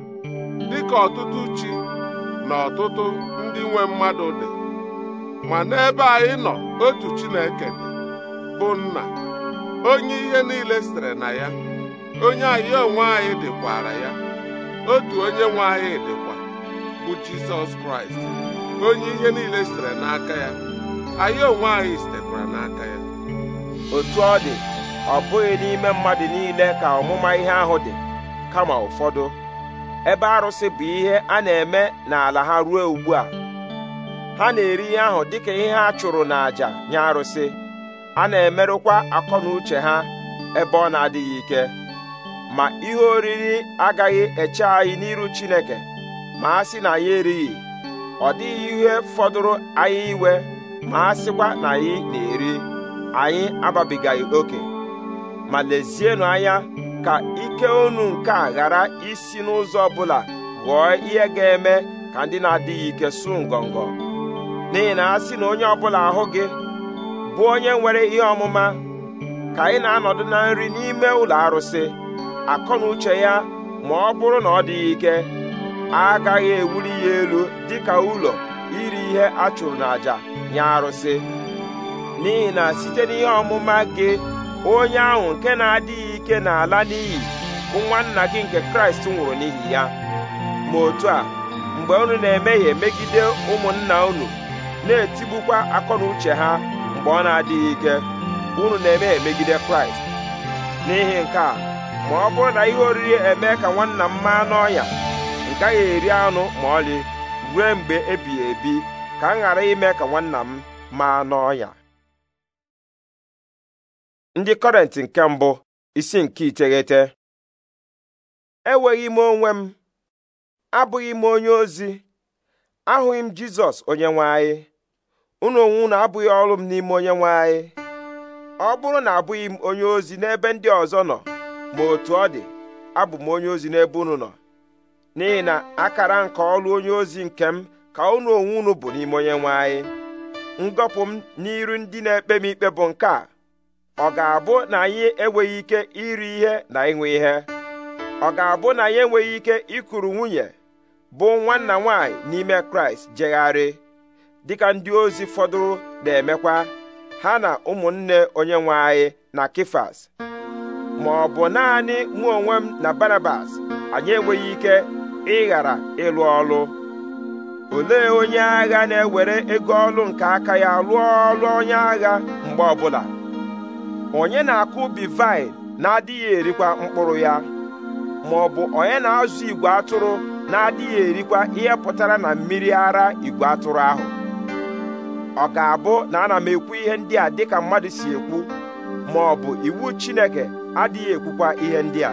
dịka ọtụtụ chi na ọtụtụ ndị nwe mmadụ dị ma n'ebe anyị nọ otu Chineke dị bụ nna onye ihe niile sitere na ya onye anyị onwe anyị dịkwara ya otu onye nwe anyị dịkwa bụ jizọs kraịst onye ihe niile sitere n'aka ya anyị onwe anyị sitekwara n'aka ya otu ọ dị ọ bụghị n'ime mmadụ niile ka ọmụma ihe ahụ dị kama ụfọdụ ebe arụsị bụ ihe a na-eme n'ala ha ruo ugbu a ha na-eri ihe ahụ dịka ihe ha chụrụ n'àjà nye arụsị a na-emerụkwa akọ na uche ha ebe ọ na-adịghị ike ma ihe oriri agaghị eche anyị n'iru Chineke ma a sị na anyị erighị ọ dịghị ihe fọdụrụ anyị iwe ma a sịkwa na anyị na-eri anyị ababigaghị oke ma lezienụ anya ka ike unu nke a ghara isi n'ụzọ ọbụla ghọọ ihe ga-eme ka ndị na-adịghị ike su ngọngọ n'ihi na a sị na onye ọbụla ahụ gị bụ onye nwere ihe ọmụma ka anyị na-anọdụ na nri n'ime ụlọ arụsị akọ na uche ya ma ọ bụrụ na ọ dịghị ike agaghị ewuli ya elu dịka ụlọ iri ihe a chụrụ n'àjà nye arụsị n'ihi na site n'ihe ọmụma gị onye ahụ nke na-adịghị ike n'ala n'iyi bụ nwanna gị nke kraịst nwụrụ n'ihi ya ma otu a mgbe unu na ya megide ụmụnna unu na-etigbukwa akọ na uche ha mgbe ọ na-adịghị ike unu na-eme emegide kraịst n'ihi nke a ma ọ bụrụ na ihe oriri eme ka nwanna m maa n'ọnya a gaghị eri anụ ma ọlị ruo mgbe ebighị ebi ka m ghara ime ka nwanna m maa n'ọnya ndị kọrentị nke mbụ isi nke iteghete enweghị m onwe m abụghị m onye ozi ahụghị m jizọs onye nwe anyị unu onwe unu abụghị ọrụ m n'ime onye nwe anyị ọ bụrụ na abụghị m onye ozi n'ebe ndị ọzọ nọ ma otu ọ dị abụ m onye ozi n'ebe unu nọ n'ihi na akara nke ọrụ onye ozi nke m ka unu onwe unu bụ n'ime onye nwe anyị ngọpụ m n'iru ndị na-ekpe m ikpe bụ nke a ọ ga-abụ na anyị enweghị ike iri ihe na ịṅụ ihe ọ ga-abụ na anyị enweghị ike ịkụrụ nwunye bụ nwanna nwaanyị n'ime kraịst jegharị dịka ndị ozi fọdụrụ na-emekwa ha na ụmụnne onye nwe anyị na Kifas ma ọ bụ naanị mụ onwe m na Barabas anyị enweghị ike ịghara ịlụ ọlụ olee onye agha na-ewere ego ọlụ nke aka ya lụọ ọlụ onye agha mgbe ọbụla onye na-akụ ubi vaịn na-adịghị erikwa mkpụrụ ya ma ọ bụ onye na-azụ igwe atụrụ na-adịghị erikwa ihe pụtara na mmiri ara igwe atụrụ ahụ ọ ga-abụ na ana m ekwu ihe ndị a dịka mmadụ si ekwu ma ọ bụ iwu Chineke adịghị ekwukwa ihe ndị a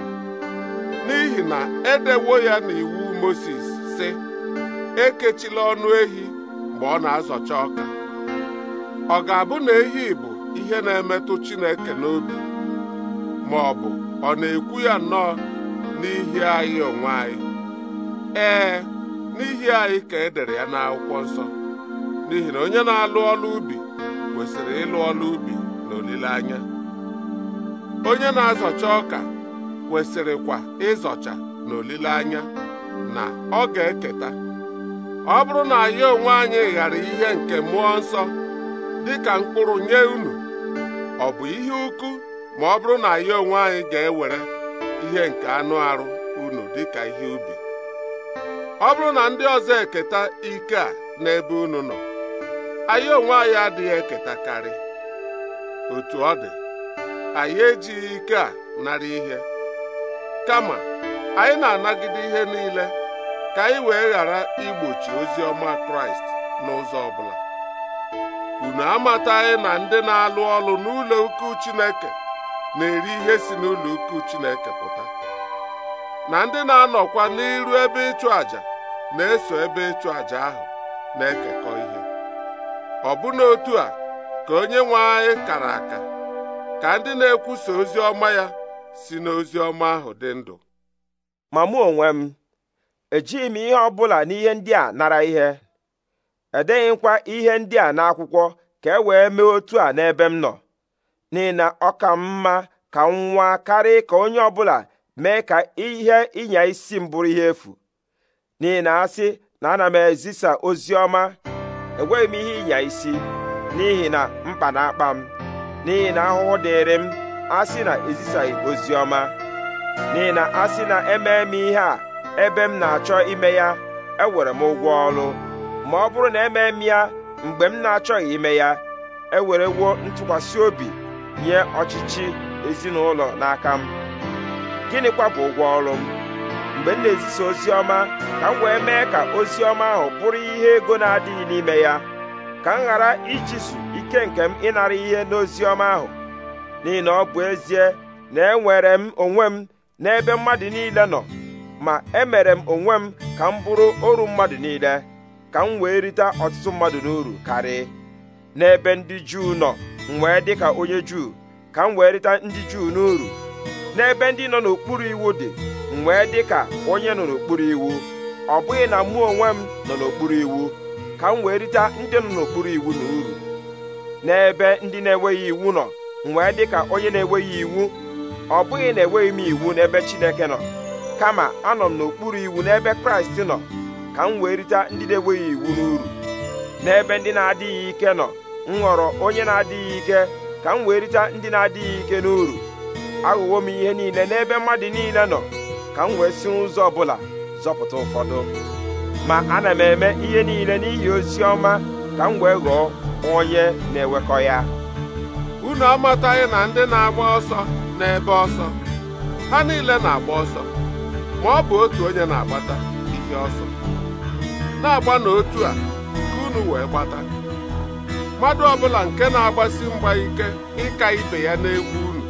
n'ihi na edewo ya na iwu Mozis sị ekechila ọnụ ehi mgbe ọ na-azọcha ọka ọ ga-abụ na ehi bụ ihe na-emetụ Chineke n'obi ma ọ bụ ọ na-ekwu ya nnọọ n'ihi anyị onwe anyị ee n'ihi anyị ka e dere ya n'akwụkwọ nsọ n'ihi na onye na-alụ ọlụ ubi kwesịrị ịlụ ọlụ ubi na olileanya onye na-azọcha ọka kwesịrịkwa ịzọcha na olileanya na ọ ga-eketa ọ bụrụ na ya onwe anyị ghara ihe nke mmụọ nsọ dịka mkpụrụ nye unu ọ bụ ihe ukwu ma ọ bụrụ na anyị onwe anyị ga-ewere ihe nke anụ arụ unu dịka ihe ubi ọ bụrụ na ndị ọzọ eketa ike a n'ebe unu nọ anyị onwe anyị adịghị eketakarị otu ọ dị anyị ejighị ike a nara ihe kama anyị na-anagide ihe niile ka anyị wee ghara igbochi ozi ọma kraịst n'ụzọ ọbụla unu amataghị na ndị na-alụ ọlụ n'ụlọ ukwu chineke na-eri ihe si n'ụlọ ukwu chineke pụta na ndị na-anọkwa n'iru ebe ịchụ àjà na-eso ebe ịchụ àjà ahụ na-ekekọ ihe ọbụna otu a ka onye nwe anyị kara aka ka ndị na-ekwusa ozi ọma ya si n'ozi ọma ahụ dị ndụ ma mụ onwe m ejighị m ihe ọ bụla n'ihe ndị a nara ihe edeghịkwa ihe ndị a n'akwụkwọ ka e wee mee otu a n'ebe m nọ n'ihi na ọ ka mma ka m nwa karị ka onye ọbụla mee ka ihe ịnya isi m bụrụ ihe efu n'ihi na asị na ana m ezisa ozi ọma enweghị m ihe ịnya isi n'ihi na mkpa na-akpa m n'ihi na ahụhụ dịrị m asị na ezisaghị ozi ọma n'ihi na asị na emee m ihe a ebe m na-achọ ime ya ewere m ụgwọ ọrụ ma ọ bụrụ na emee m ya mgbe m na-achọghị ime ya ewerewo ntụkwasị obi nye ọchịchị ezinụlọ n'aka m gịnịkwa bụ ụgwọ ọrụ m mgbe m na-ezisa ozi ọma ka m wee mee ka ozi ọma ahụ bụrụ ihe ego na-adịghị n'ime ya ka m ghara ichisu ike nke m ịnara ihe n'ozi ọma ahụ n'ihi na ọ bụ ezie na enwere m onwe m n'ebe mmadụ niile nọ ma emere m onwe m ka m bụrụ oru mmadụ niile ka m wee rite ọtụtụ mmadụ n'uru karị n'ebe ndị juu nọ m wee dị ka onye juu ka m wee rite ndị juu n'uru n'ebe ndị nọ n'okpuru iwu dị m wee dị ka onye nọ n'okpuru iwu ọ bụghị na mụ onwe m nọ n'okpuru iwu ka m wee rite ndị nọ n'okpuru iwu na uru n'ebe ndị na-enweghị iwu nọ mwee dị ka onye na-enweghị iwu ọ bụghị na enweghị m iwu n'ebe Chineke nọ kama anọ m n'okpuru iwu n'ebe Kraịst nọ ka m wee rite ndị na-enweghị iwu n'uru n'ebe ndị na-adịghị ike nọ m ghọrọ onye na-adịghị ike ka m wee rite ndị na-adịghị ike n'uru aghụghọ m ihe niile n'ebe mmadụ niile nọ ka m wee si ụzọ ọbụla zọpụta ụfọdụ ma ana m eme ihe niile n'ihi ozi ọma ka m wee ghọọ onye na-ewekọ ya unu amataghị na ndị na-agba ọsọ n'ebe ọsọ ha niile na-agba ọsọ ma ọ bụ otu onye na-agbata ihe ọsọ na-agba n'otu a ka unu wee gbata mmadụ ọbụla nke na-agbasi mgba ike ịka ibe ya n'egwu unu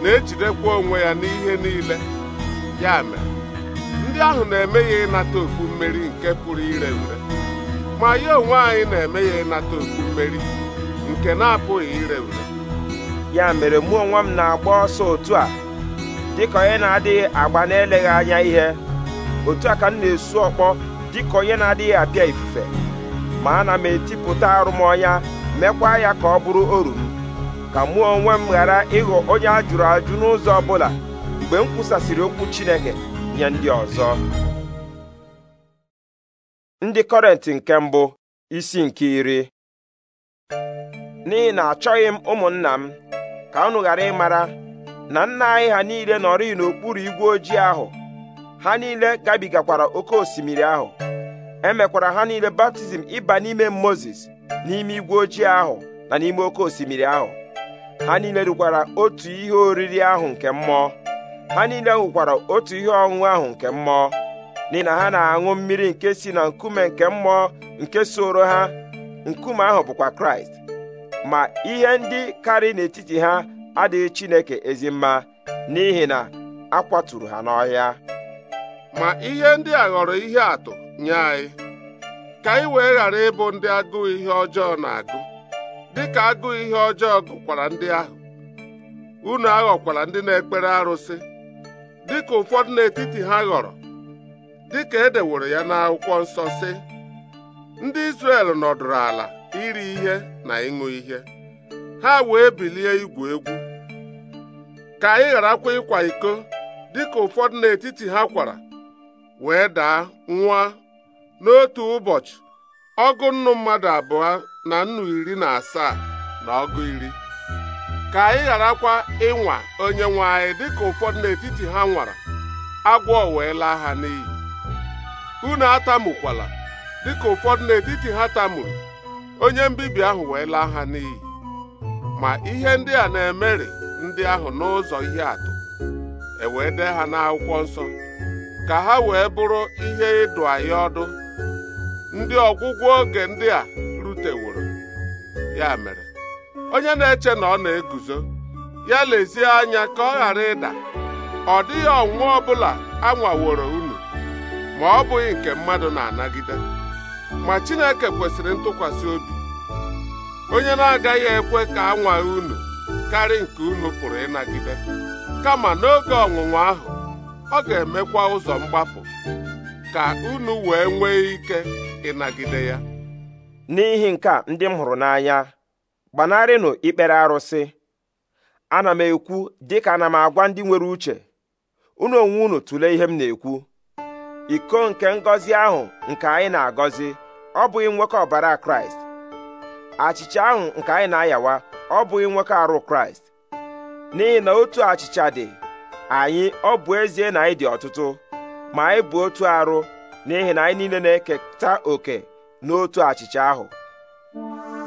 na-ejidekwa onwe ya n'ihe niile ya mere ndị ahụ na-eme ya ịnata okpu mmeri nke pụrụ ire ure ma ya onwe anyị na-eme ya ịnata okpu mmeri nke na-apụghị ire ure ya mere mụ onwe m na-agba ọsọ otu a dịka onye na-adịghị agba na-eleghị anya ihe otu a ka m na-esu ọkpọ dịka onye na-adịghị apịa ifufe ma ana m etipụta arụmọnya mekwa ya ka ọ bụrụ oru ka mụ onwe m ghara ịghọ onye a jụrụ ajụ n'ụzọ ọ bụla mgbe m kwusasịrị okwu Chineke nye ndị ọzọ ndị Kọrentị nke mbụ isi nke iri n'ihi na achọghị m ụmụnna m ka unu ghara ịmara na nna anyị ha niile nọrị n'okpuru igwe ojii ahụ ha niile gabigakwara oke osimiri ahụ emekwara ha niile baptizim ịba n'ime Mozis n'ime igwe ojii ahụ na n'ime oke osimiri ahụ ha niile rukwara otu ihe oriri ahụ nke mmụọ ha niile ṅụkwara otu ihe ọṅụṅụ ahụ nke mmụọ n'ihi na ha na-aṅụ mmiri nke si na nkume nke mmụọ nke soro ha nkume ahụ bụkwa kraịst ma ihe ndị karị n'etiti ha adịghị chineke ezi mma n'ihi na a kwaturu ha n'ọhịa ma ihe ndị a ghọrọ ihe atụ nye anyị ka anyị wee ghara ịbụ ndị agụụ ihe ọjọọ na-agụ dịka agụụ ihe ọjọọ gụkwara ndị ahụ unu aghọkwara ndị na-ekpere arụsị dịka ụfọdụ n'etiti ha ghọrọ dịka e deworo ya n'akwụkwọ nsọ sị ndị Izrel nọdụrụ ala iri ihe na ịṅụ ihe ha wee bilie igwu egwu ka anyị gharakwa ịkwa iko dịka ụfọdụ n'etiti ha kwara wee daa nwa n'otu ụbọchị ọgụ nnu mmadụ abụọ na nnu iri na asaa na ọgụ iri ka anyị gharakwa ịnwa onye nwe anyị dịka ụfọdụ n'etiti ha nwara agwọ wee laa ha n'iyi unu atamukwala dịka ụfọdụ n'etiti ha tamuru onye mbibi ahụ wee laa ha n'iyi ma ihe ndị a na-emeri ndị ahụ n'ụzọ ihe atụ e dee ha n'akwụkwọ nsọ ka ha wee bụrụ ihe ịdụ anyị ọdụ ndị ọgwụgwọ oge ndị a ruteworo ya mere onye na-eche na ọ na-eguzo ya lezie anya ka ọ ghara ịda ọ dịghị ọnwụnwa ọbụla anwaworo unu ma ọ bụghị nke mmadụ na-anagide ma Chineke kwesịrị ntụkwasị obi onye na-agaghị ekwe ka nwaghị unu karị nke unu pụrụ ịnagide kama n'oge ọnwụnwa ahụ ọ ga-emekwa ụzọ mgbapụ ka unu wee nwee ike ịnagide ya n'ihi nke a ndị m hụrụ n'anya gbanarịnụ ikpere arụsị ana m ekwu dịka ana m agwa ndị nwere uche unu onwe unu tụlee ihe m na-ekwu iko nke ngọzi ahụ nke anyị na-agọzi ọ bụghị nwoke ọbara kraịst achịcha ahụ nke anyị na-ayawa ọ bụghị nwoke arụ kraịst n'ihi na otu achịcha dị anyị ọ bụ ezie na anyị dị ọtụtụ ma anyị bụ otu arụ n'ihi na anyị niile na-eketa oke n'otu achịcha ahụ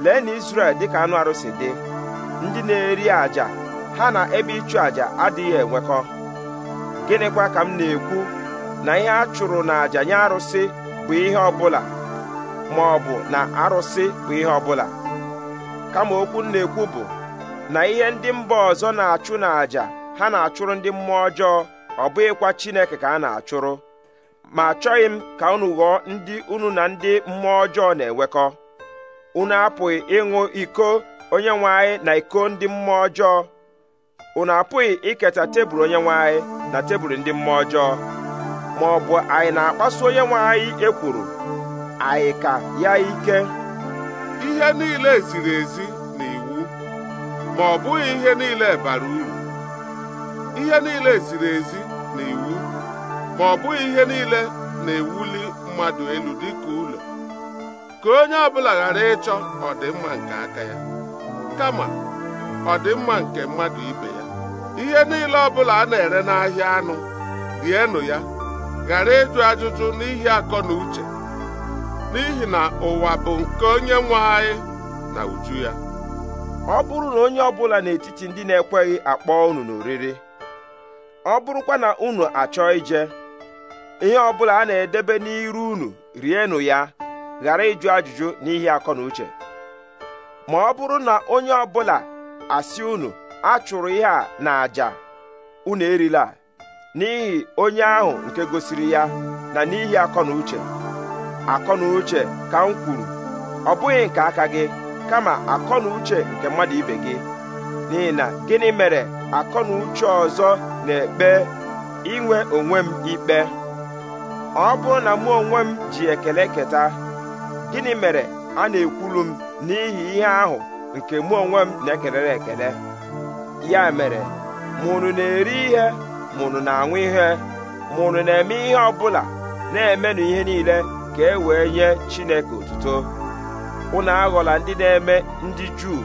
lee na Izrel dịka anụ arụsị dị ndị na-eri àjà ha na ebe ịchụ àjà adịghị enwekọ gịnịkwa ka m na-ekwu na ihe a chụrụ na àjà nye arụsị bụ ihe ọbụla ma ọ bụ na arụsị bụ ihe ọbụla kama okwu na-ekwu bụ na ihe ndị mba ọzọ na-achụ na ha na-achụrụ ndị mmụọ ọjọọ ọ bụghịkwa Chineke ka a na-achụrụ ma achọghị m ka unu ghọọ ndị unu na ndị mmụọ ọjọọ na-enwekọ unu apụghị ịṅụ iko onye nwe anyị na iko ndị mmụọ ọjọọ unu apụghị iketa tebụl onye nwe anyị na tebụl ndị mmụọ ọjọọ ma ọ bụ anyị na-akpasu onye nwe anyị ekwuru anyị ka ya ike ihe niile ziri ezi na iwu ma ọ bụghị ihe niile bara uru ihe niile ziri ezi na iwu ma ọ bụghị ihe niile na-ewuli mmadụ elu dịka ka onye ọbụla ghara ịchọ ọdịmma nke aka ya kama ọdịmma nke mmadụ ibe ya ihe niile ọbụla a na-ere n'ahịa anụ rienụ ya ghara ịjụ ajụjụ n'ihi akọ na uche n'ihi na ụwa bụ nke onye nwe anyị na uju ya ọ bụrụ na onye ọbụla n'etiti ndị na-ekweghị akpọ unu n'oriri ọ bụrụkwa na unu achọ ije ihe ọbụla a na-edebe n'iru unu rienụ ya ghara ịjụ ajụjụ n'ihi akọ na uche ma ọ bụrụ na onye ọ bụla asị unu a chụrụ ihe a na àjà unu erila n'ihi onye ahụ nke gosiri ya na n'ihi akọ na uche akọ na uche ka m kwuru ọ bụghị nke aka gị kama akọ na uche nke mmadụ ibe gị n'ihi na gịnị mere akọ na uche ọzọ na-ekpe inwe onwe m ikpe ọ bụrụ na mụ onwe m ji ekele keta gịnị mere a na-ekwulu m n'ihi ihe ahụ nke mụ onwe m na-ekelere ekele ya mere mụnụ na-eri ihe mụnụ na-aṅụ ihe mụnụ na-eme ihe ọ bụla na-emenụ ihe niile ka e wee nye Chineke otuto Ụnụ aghọla ndị na-eme ndị Juu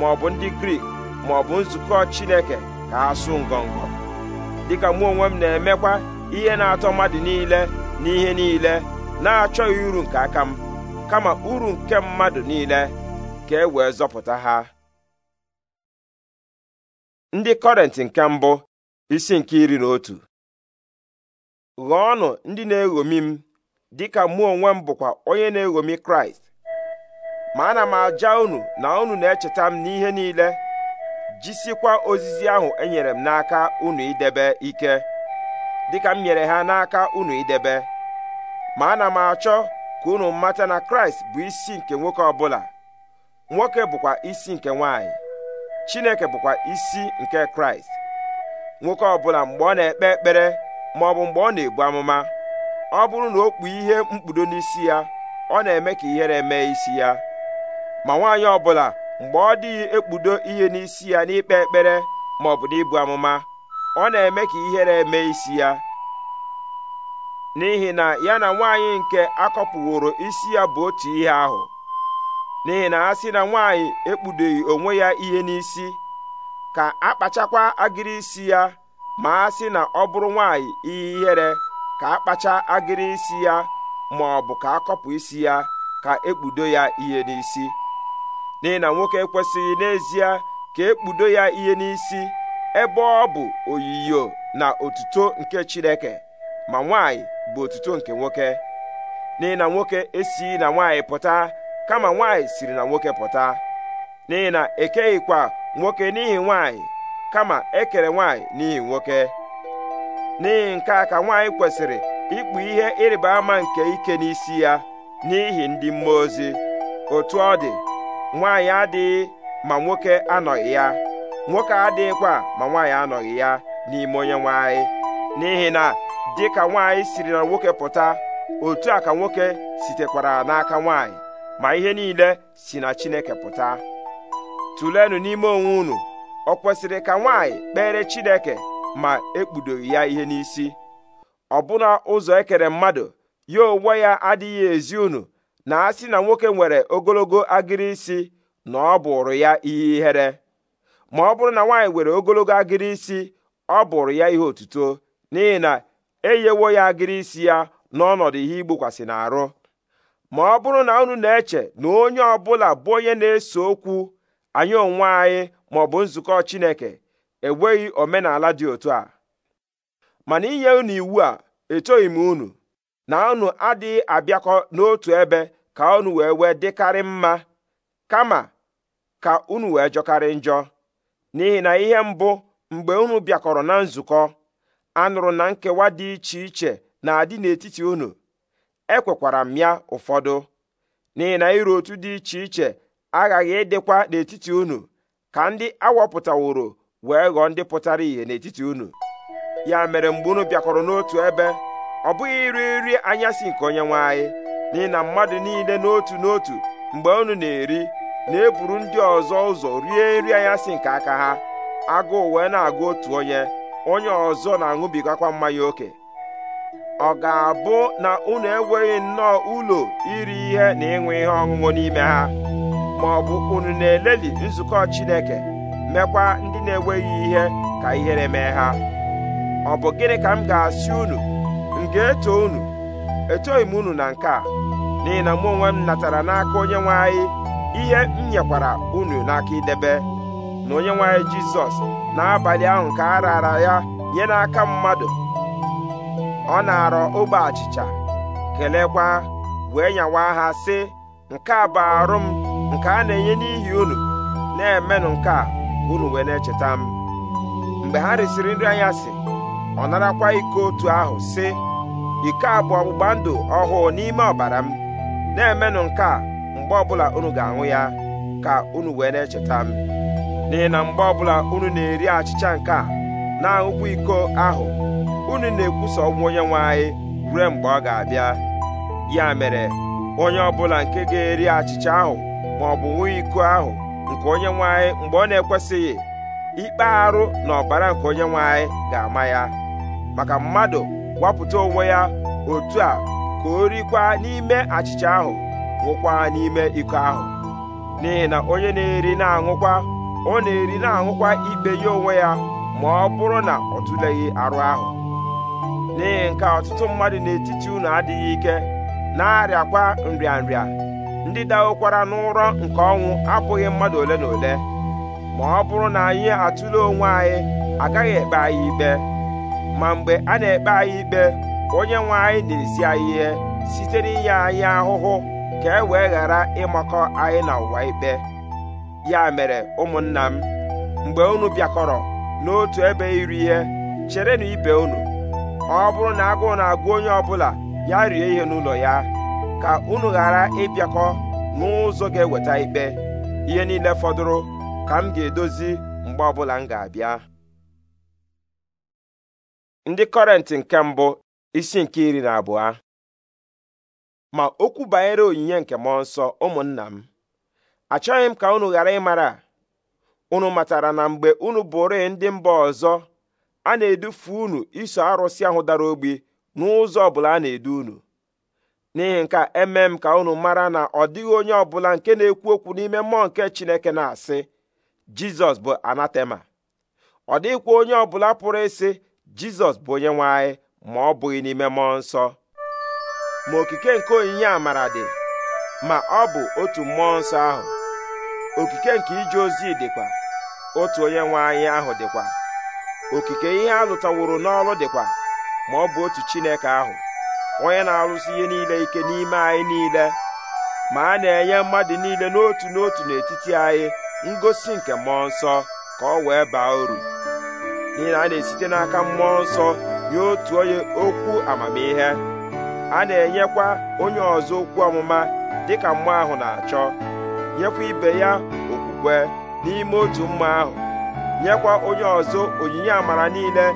ma ọ bụ ndị Grik ma ọ bụ nzukọ Chineke ka ha sụ ngọngọ dịka mụ onwe m na-emekwa ihe na-atọ mmadụ niile n'ihe niile na-achọghị uru nke aka m kama uru nke mmadụ niile ka e wee zọpụta ha ndị kọrenti nke mbụ isi nke iri na otu ọnụ ndị na-eghomi m dịka mụ onwe m bụkwa onye na-eghomi kraịst ma ana m aja unu na unu na-echeta m n'ihe niile jisikwa ozizi ahụ enyere m n'aka unu idebe ike dịka m nyere ha n'aka unu idebe ma ana m achọ ka unu mata na kraịst bụ isi nke nwoke ọbụla nwoke bụkwa isi nke nwanyị chineke bụkwa isi nke kraịst nwoke ọbụla mgbe ọ na-ekpe ekpere ma ọ bụ mgbe ọ na-ebu amụma ọ bụrụ na o kpu ihe mkpudo n'isi ya ọ na-eme ka ihere mee isi ya ma nwaanyị ọbụla mgbe ọ dịghị ekpudo ihe n'isi ya n'ikpe ekpere ma ọ bụ n'ibu amụma ọ na-eme ka ihere mee isi ya n'ihi na ya na nwaanyị nke akọpụworo isi ya bụ otu ihe ahụ n'ihi na a sị na nwaanyị ekpudoghi onwe ya ihe n'isi ka akpachakwa agịrị isi ya ma a sị na ọ bụrụ nwanyị ihe ihere ka akpacha agịrị isi ya ma ọ bụ ka akọpụ isi ya ka ekpudo ya ihe n'isi n'ihi na nwoke ekwesịghị n'ezie ka ekpudo ya ihe n'isi ebe ọ bụ oyiyo na otuto nke Chineke ma nwaanyị bụ otuto nke nwoke n'ihi na nwoke esi na nwaanyị pụta kama nwaanyị siri na nwoke pụta n'ihi na ekeghịkwa nwoke n'ihi nwaanyị kama ekere nwaanyị n'ihi nwoke n'ihi nke a ka nwaanyị kwesịrị ịkpụ ihe ịrịba ama nke ike n'isi ya n'ihi ndị mmụọ ozi otu ọ dị nwaanyị adịghị ma nwoke anọghị ya nwoke adịghịkwa ma nwaanyị anọghị ya n'ime onye nwaanyị n'ihi na dị ka nwaanyị siri na nwoke pụta otu a ka nwoke sitekwara n'aka nwaanyị ma ihe niile si na Chineke pụta tụlenụ n'ime onwe unu ọ kwesịrị ka nwaanyị kpere Chineke ma ekpudoghi ya ihe n'isi ọbụna ụzọ ekere mmadụ ya onwe ya adịghị ezi unu na a sị na nwoke nwere ogologo agịrị isi na ọ bụrụ ya ihe ihere ma ọ bụrụ na nwaanyị nwere ogologo agịrị isi ọ bụrụ ya ihe otuto n'ihi na eyewo ya agịrị isi ya n'ọnọdụ ihe igbokwasị n'arụ ma ọ bụrụ na unu na-eche na onye ọbụla bụ onye na-ese okwu anyị onwe anyị ma ọ bụ nzukọ Chineke enweghị omenala dị otu a mana inye unu iwu a etoghị m unu na unu adịghị abịakọ n'otu ebe ka unu wee wee dịkarị mma kama ka unu wee jọkarị njọ n'ihi na ihe mbụ mgbe unu bịakọrọ na nzukọ a nụrụ na nkewa dị iche iche na-adị n'etiti unu ekwekwara m ya ụfọdụ n'ihi na iru otu dị iche iche aghaghị ịdịkwa n'etiti unu ka ndị awọpụtaworo wee ghọọ ndị pụtara ìhè n'etiti unu ya mere mgbe unu bịakọrọ n'otu ebe ọ bụghị iri nri anyasị nke onye nwe anyị n'ihi na mmadụ niile n'otu n'otu mgbe unu na-eri na-eburu ndị ọzọ ụzọ rie nri anyasị nke aka ha agụụ wee na-agụ otu onye onye ọzọ na-aṅụbigakwa mmanya oke ọ ga-abụ na unu enweghị nnọọ ụlọ iri ihe na ịṅụ ihe ọṅụṅụ n'ime ha ma ọ bụ unu na-eleli nzukọ Chineke mekwa ndị na-enweghị ihe ka ihere mee ha ọ bụ gịnị ka m ga-asị unu m ga-eto unu etoghị m unu na nke a n'ihi na mụ onwe m natara n'aka onye nwe anyị ihe m nyekwara unu n'aka idebe na onye nwaanyị jizọs n'abalị ahụ ka a rara ya nye n'aka mmadụ ọ na-arọ ogbe achịcha kelekwa wee nyawa ha sị nke a bụ arụ m nke a na-enye n'ihi unu na-emenụ nke a unu wee na-echeta m mgbe ha risịrị nri anya sị ọ narakwa iko otu ahụ sị iko a bụ ọgbụgba ndụ ọhụụ n'ime ọbara m na-emenụ nke a mgbe ọbụla unu ga-aṅụ ya ka unu wee na-echeta m n'ihi na mgbe ọbụla unu na-eri achịcha nke a na-aṅụkwa iko ahụ unu na-ekwusa ọgwụ onye nwe anyị ruo mgbe ọ ga-abịa ya mere onye ọbụla nke ga-eri achịcha ahụ ma ọ bụ nwe iko ahụ nke onye nwanyị anyị mgbe ọ na-ekwesịghị ikpe arụ na ọbara nke onye nwanyị anyị ga-ama ya maka mmadụ wapụta onwe ya otu a ka o rikwa n'ime achịcha ahụ ṅụkwa n'ime iko ahụ n'ihi na onye na-eri na-aṅụkwa ọ na-eri na-aṅụkwa ikpe ya onwe ya ma ọ bụrụ na ọ tụleghị arụ ahụ n'ihi nke ọtụtụ mmadụ n'etiti unu adịghị ike na-arịakwa nrịanrịa ndị dawokwara n'ụrọ nke ọnwụ abụghị mmadụ ole na ole ma ọ bụrụ na anyị atụle onwe anyị agaghị ekpe anyị ikpe ma mgbe a na-ekpe anyị ikpe onye nwe anyị na-esi anyị ihe site n'inye anyị ahụhụ ka e wee ghara ịmakọ anyị na ụwa ikpe ya mere ụmụnna m mgbe unu bịakọrọ n'otu ebe iri ihe cherenụ ibe unu ọ bụrụ na agụụ na-agụ onye ọbụla ya rie ihe n'ụlọ ya ka unu ghara ịbịakọ n'ụzọ ga-eweta ikpe ihe niile fọdụrụ ka m ga-edozi mgbe ọbụla m ga-abịa ndị kọrentị nke mbụ isi nke iri na abụọ ma okwu banyere onyinye nke mmụọ nsọ ụmụnna m achọghị m ka unu ghara ịmara unu matara na mgbe unu bụrụ ndị mba ọzọ a na-edufu unu iso arụsị ahụ dara ogbi n'ụzọ ọbụla a na-edu unu n'ihi nke eme m ka unu mara na ọ dịghị onye ọbụla nke na-ekwu okwu n'ime mmụọ nke chineke na-asị jizọs bụ anatema ọ dịghịkwa onye ọbụla pụrụ ịsị jizọs bụ onye nwe ma ọ bụghị n'ime mmụọ nsọ ma okike nke onyinye amara dị ma ọ bụ otu mmụọ nsọ ahụ okike nke ije ozi dịkwa otu onye nwe anyị ahụ dịkwa okike ihe a n'ọrụ dịkwa ma ọ bụ otu Chineke ahụ onye na arụsi ihe niile ike n'ime anyị niile ma a na-enye mmadụ niile n'otu n'otu n'etiti anyị ngosi nke mmụọ nsọ ka ọ wee baa uru n'ihi na a na-esite n'aka mmụọ nsọ nye otu onye okwu amamihe a na-enyekwa onye ọzọ okwu ọmụma dịka mmụọ ahụ na-achọ nyekwa ibe ya okwukwe n'ime otu mma ahụ nyekwa onye ọzọ onyinye amara niile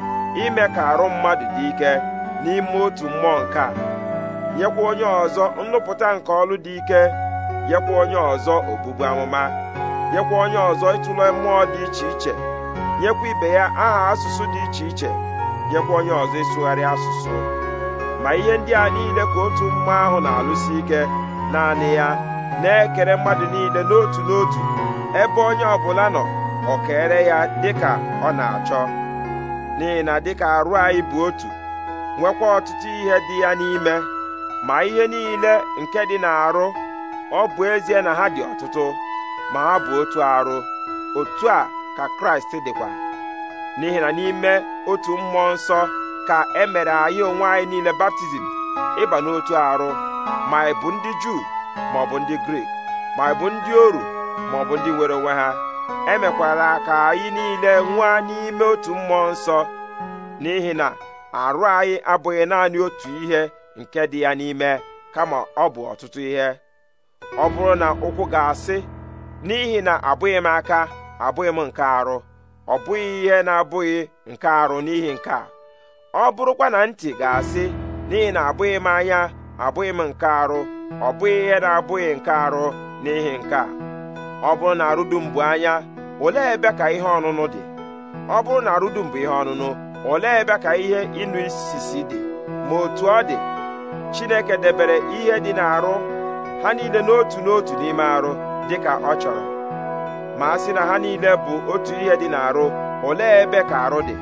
ime ka arụ mmadụ dị ike n'ime otu mmụọ nke a nyekwa onye ọzọ nnụpụta nke ọlụ dị ike nyekwa onye ọzọ obubu amụma nyekwa onye ọzọ ịtụle mmụọ dị iche iche nyekwa ibe ya aha asụsụ dị iche iche nyekwa onye ọzọ ịsụgharị asụsụ ma ihe ndị a niile ka otu mmụọ ahụ na-alụsi ike naanị ya na-ekere mmadụ niile n'otu n'otu ebe onye ọbụla nọ ọ kere ya dịka ọ na-achọ n'ihi na dịka arụ anyị bụ otu nwekwa ọtụtụ ihe dị ya n'ime ma ihe niile nke dị n'arụ ọ bụ ezie na ha dị ọtụtụ ma ha bụ otu arụ otu a ka Kraịst dịkwa n'ihi na n'ime otu mmụọ nsọ ka e mere anyị onwe anyị niile baptizim ịba n'otu arụ ma ị bụ ndị Juu maọbụ ndị grik maịbụ ndị oru maọbụ ndị nwere onwe ha emekwala ka anyị niile nwa n'ime otu mmụọ nsọ n'ihi na arụ anyị abụghị naanị otu ihe nke dị ya n'ime kama ọ bụ ọtụtụ ihe ọ bụrụ na ụkwụ ga-asị n'ihi na abụghị m aka abụghị m nke arụ ọ bụghị ihe na-abụghị nke arụ n'ihi nke a ọ bụrụkwa na ntị ga-asị n'ihi na abụghị m anya abụghị m nke arụ ọ bụghị ihe na-abụghị nke arụ n'ihi nke a ọ bụrụ na arụdum bụ anya olee ebe ka ihe ọṅụṅụ dị ọ bụrụ na arụdum bụ ihe ọṅụṅụ olee ebe ka ihe ịnụ isisi dị ma otu ọ dị Chineke debere ihe dị n'arụ ha niile n'otu n'otu n'ime arụ dị ka ọ chọrọ ma a sị na ha niile bụ otu ihe dị n'arụ olee ebe ka arụ dị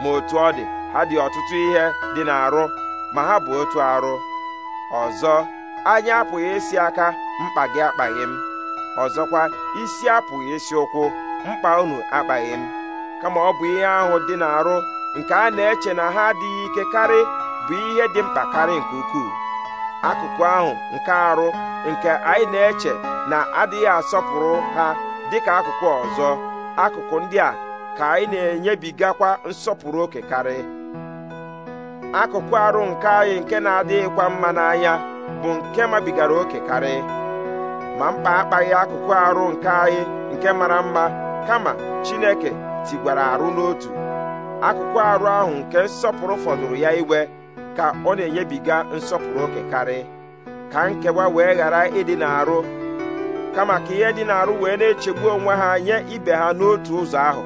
ma otu ọ dị ha dị ọtụtụ ihe dị n'arụ ma ha bụ otu arụ ọzọ anya apụghị isi aka mkpa gị akpaghị m ọzọkwa isi apụghị isi ụkwụ mkpa unu akpaghị m kama ọ bụ ihe ahụ dị n'arụ nke a na-eche na ha adịghị ike karị bụ ihe dị mkpa karị nke ukwuu akụkụ ahụ nke arụ nke anyị na-eche na adịghị asọpụrụ ha dịka akụkụ ọzọ akụkụ ndị a ka anyị na-enyebigakwa nsọpụrụ oke karị akụkụ arụ nke anyị nke na-adịghịkwa mma n'anya bụ nke mabigara oke karị ma mkpa akpaghị akụkụ arụ nke anyị nke mara mma kama Chineke tigwara arụ n'otu akụkụ arụ ahụ nke nsọpụrụ fọdụrụ ya iwe ka ọ na-enyebiga nsọpụrụ oke karị ka nkewa wee ghara ịdị n'arụ kama ka ihe dị n'arụ wee na-echegbu onwe ha nye ibe ha n'otu ụzọ ahụ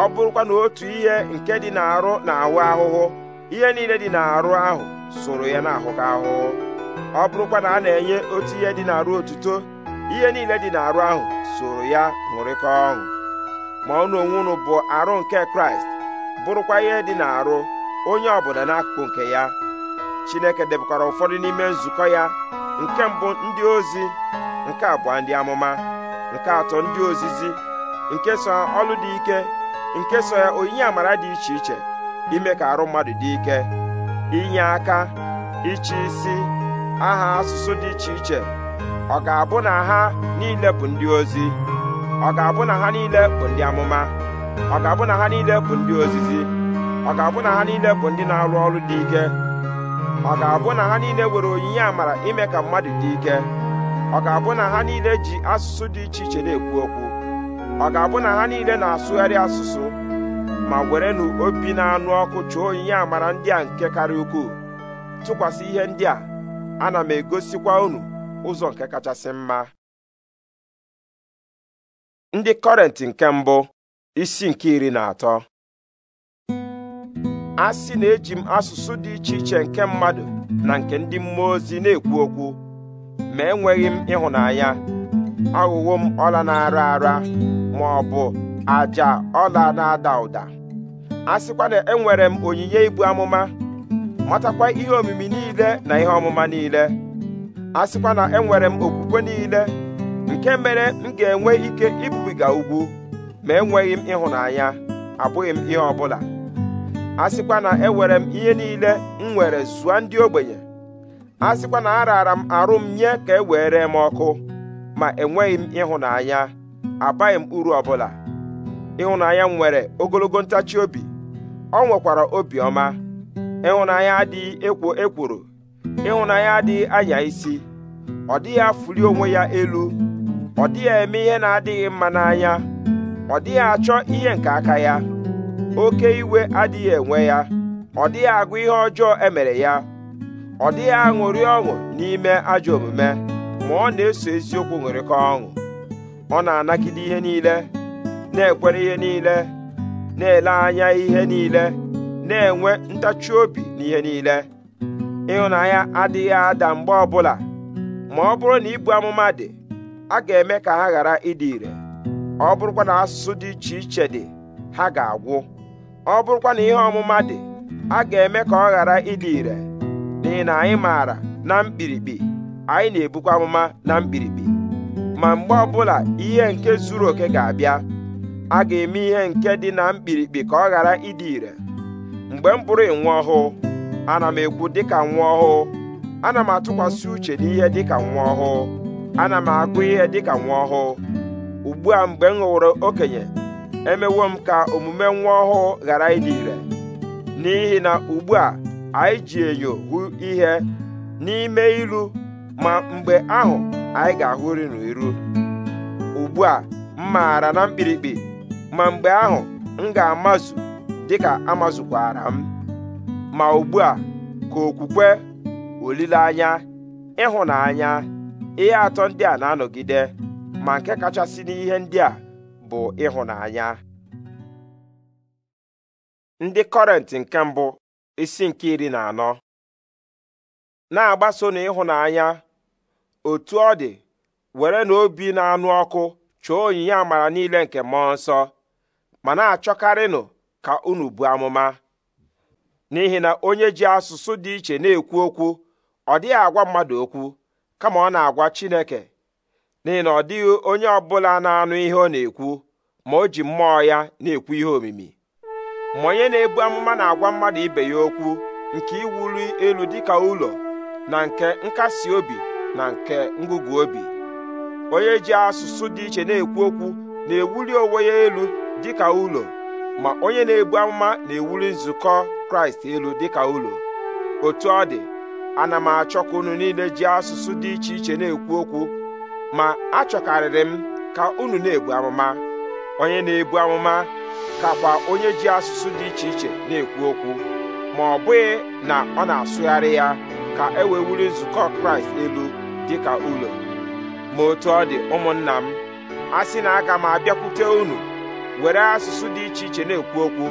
ọ bụrụkwa na otu ihe nke dị n'arụ na-ahụ ahụhụ ihe niile dị n'arụ ahụ soro ya na-ahụhụ ahụhụ ọ bụrụkwa na a na-enye otu ihe dị n'arụ otuto ihe niile dị n'arụ ahụ soro ya ṅụrịkọ ọṅụ ma unu onwe unu bụ arụ nke kraịst bụrụkwa ihe dị n'arụ onye ọbụla n'akụkụ nke ya chineke debụkwara ụfọdụ n'ime nzukọ ya nke mbụ ndị ozi nke abụọ ndị amụma nke atọ ndị ozizi nke so ọlụ dị ike nke so ya onyinye amara dị iche iche ime ka arụ mmadụ dị ike inye aka iche isi aha asụsụ dị iche iche ọ ga-abụ na ha niile bụ ndị ozi ọ ga-abụ na ha niile bụ ndị amụma ọ ga-abụ na ha niile bụ ndị ozizi ọ ga-abụ na ha niile bụ ndị na-arụ ọrụ dị ike ọ ga-abụ na ha niile nwere onyinye amara ime ka mmadụ dị ike ọ ga-abụ na ha niile ji asụsụ dị iche iche na-ekwu okwu ọ ga-abụ na ha niile na-asụgharị asụsụ ma werenụ obi na-anụ ọkụ chụọ onyinye amara ndị a nke karịa ukwuu tụkwasị ihe ndị a ana m egosikwa unu ụzọ nke kachasị mma ndị kọrent nke mbụ isi nke iri na atọ a sị na eji m asụsụ dị iche iche nke mmadụ na nke ndị mmụọ ozi na-ekwu okwu ma enweghị m ịhụnanya aghụghọ m ọla na-ara ara ma ọ bụ àjà ọla na-ada ụda a na enwere m onyinye ibu amụma matakwa ihe omimi niile na ihe ọmụma niile a sịkwa na enwere m okwukwe niile nke mere m ga-enwe ike ibubiga ugwu ma enweghị m ịhụnanya abụghị m ihe ọbụla a sịkwa na enwere m ihe niile m nwere zụa ndị ogbenye a sịkwa na araara m arụ m nye ka e were m ọkụ ma enweghị m ịhụnanya abaghị m uru ọbụla ịhụnanya m nwere ogologo ntachi obi ọ nwekwara obiọma ịhụnanya adịghị ekwo ekworo ịhụnanya adịghị anya isi ọ dịghị afụli onwe ya elu ọ dịghị eme ihe na-adịghị mma n'anya ọ dịghị achọ ihe nke aka ya oke iwe adịghị enwe ya ọ dịghị agụ ihe ọjọọ emere ya ọ dịghị aṅụrị ọṅụ n'ime ajọ omume ma ọ na-eso eziokwu ṅụrịkọ ọṅụ ọ na-anagide ihe niile na-ekwere ihe niile na-ele anya ihe niile na-enwe ntachi obi n'ihe niile ịhụnanya adịghị ada mgbe ọbụla ma ọ bụrụ na ibu amụma dị a ga-eme ka ha ghara ịdị ire ọ bụrụkwa na asụsụ dị iche iche dị ha ga-agwụ ọ bụrụkwa na ihe ọmụma dị a ga-eme ka ọ ghara ịdị ire n'ihi na anyị maara na mkpirikpi anyị na-ebukwa amụma na mkpirikpi ma mgbe ọbụla ihe nke zuru oke ga-abịa a ga-eme ihe nke dị na mkpirikpi ka ọ ghara ịdị ire mgbe m bụrụ nwa ọhụụ ana m ekwu dịka nwa ọhụụ ana m atụkwasị uche n'ihe dịka nwa ọhụụ ana m agụ ihe dịka nwa ọhụụ ugbu a mgbe m ghọrọ okenye emewo m ka omume nwa ọhụụ ghara ịdị ire n'ihi na ugbu a anyị ji enyo hụ ihe n'ime ilu ma mgbe ahụ anyị ga-ahụri n'iru ugbu a m maara na mkpirikpi ma mgbe ahụ m ga-amazu dịka amazụkwara m ma ugbu a ka okwukwe olileanya ịhụnanya ihe atọ ndị a na-anọgide ma nke kachasị n'ihe ndị a bụ ịhụnanya ndị kọrent nke mbụ isi nke iri na anọ na-agbaso na ịhụnanya otu ọ dị were na obi na-anụ ọkụ chọọ onyinye amara niile nke mmụọ nsọ ma na-achọkarịnụ ka unu buo amụma n'ihi na onye ji asụsụ dị iche na-ekwu okwu ọ dịghị agwa mmadụ okwu kama ọ na-agwa Chineke n'ihi na ọ dịghị onye ọbụla na-anụ ihe ọ na-ekwu ma o ji mmụọ ya na-ekwu ihe omimi ma onye na-ebu amụma na-agwa mmadụ ibe ya okwu nke iwuli elu dịka ụlọ na nke nkasi obi na nke ngụgụ obi onye ji asụsụ dị iche na-ekwu okwu na-ewuli onwe ya elu dịka ụlọ ma onye na-ebu amụma na-ewuli nzukọ kraịst elu dịka ụlọ otu ọ dị ana m achọ ka unu niile ji asụsụ dị iche iche na-ekwu okwu ma achọkarịrị m ka unu na-ebu amụma onye na-ebu amụma kakwa onye ji asụsụ dị iche iche na-ekwu okwu ma ọ bụghị na ọ na-asụgharị ya ka e wee wuli nzukọ kraịst elu dịka ụlọ ma otu ọ dị ụmụnna m a sị na aga m abịakwute unu were asụsụ dị iche iche na-ekwu okwu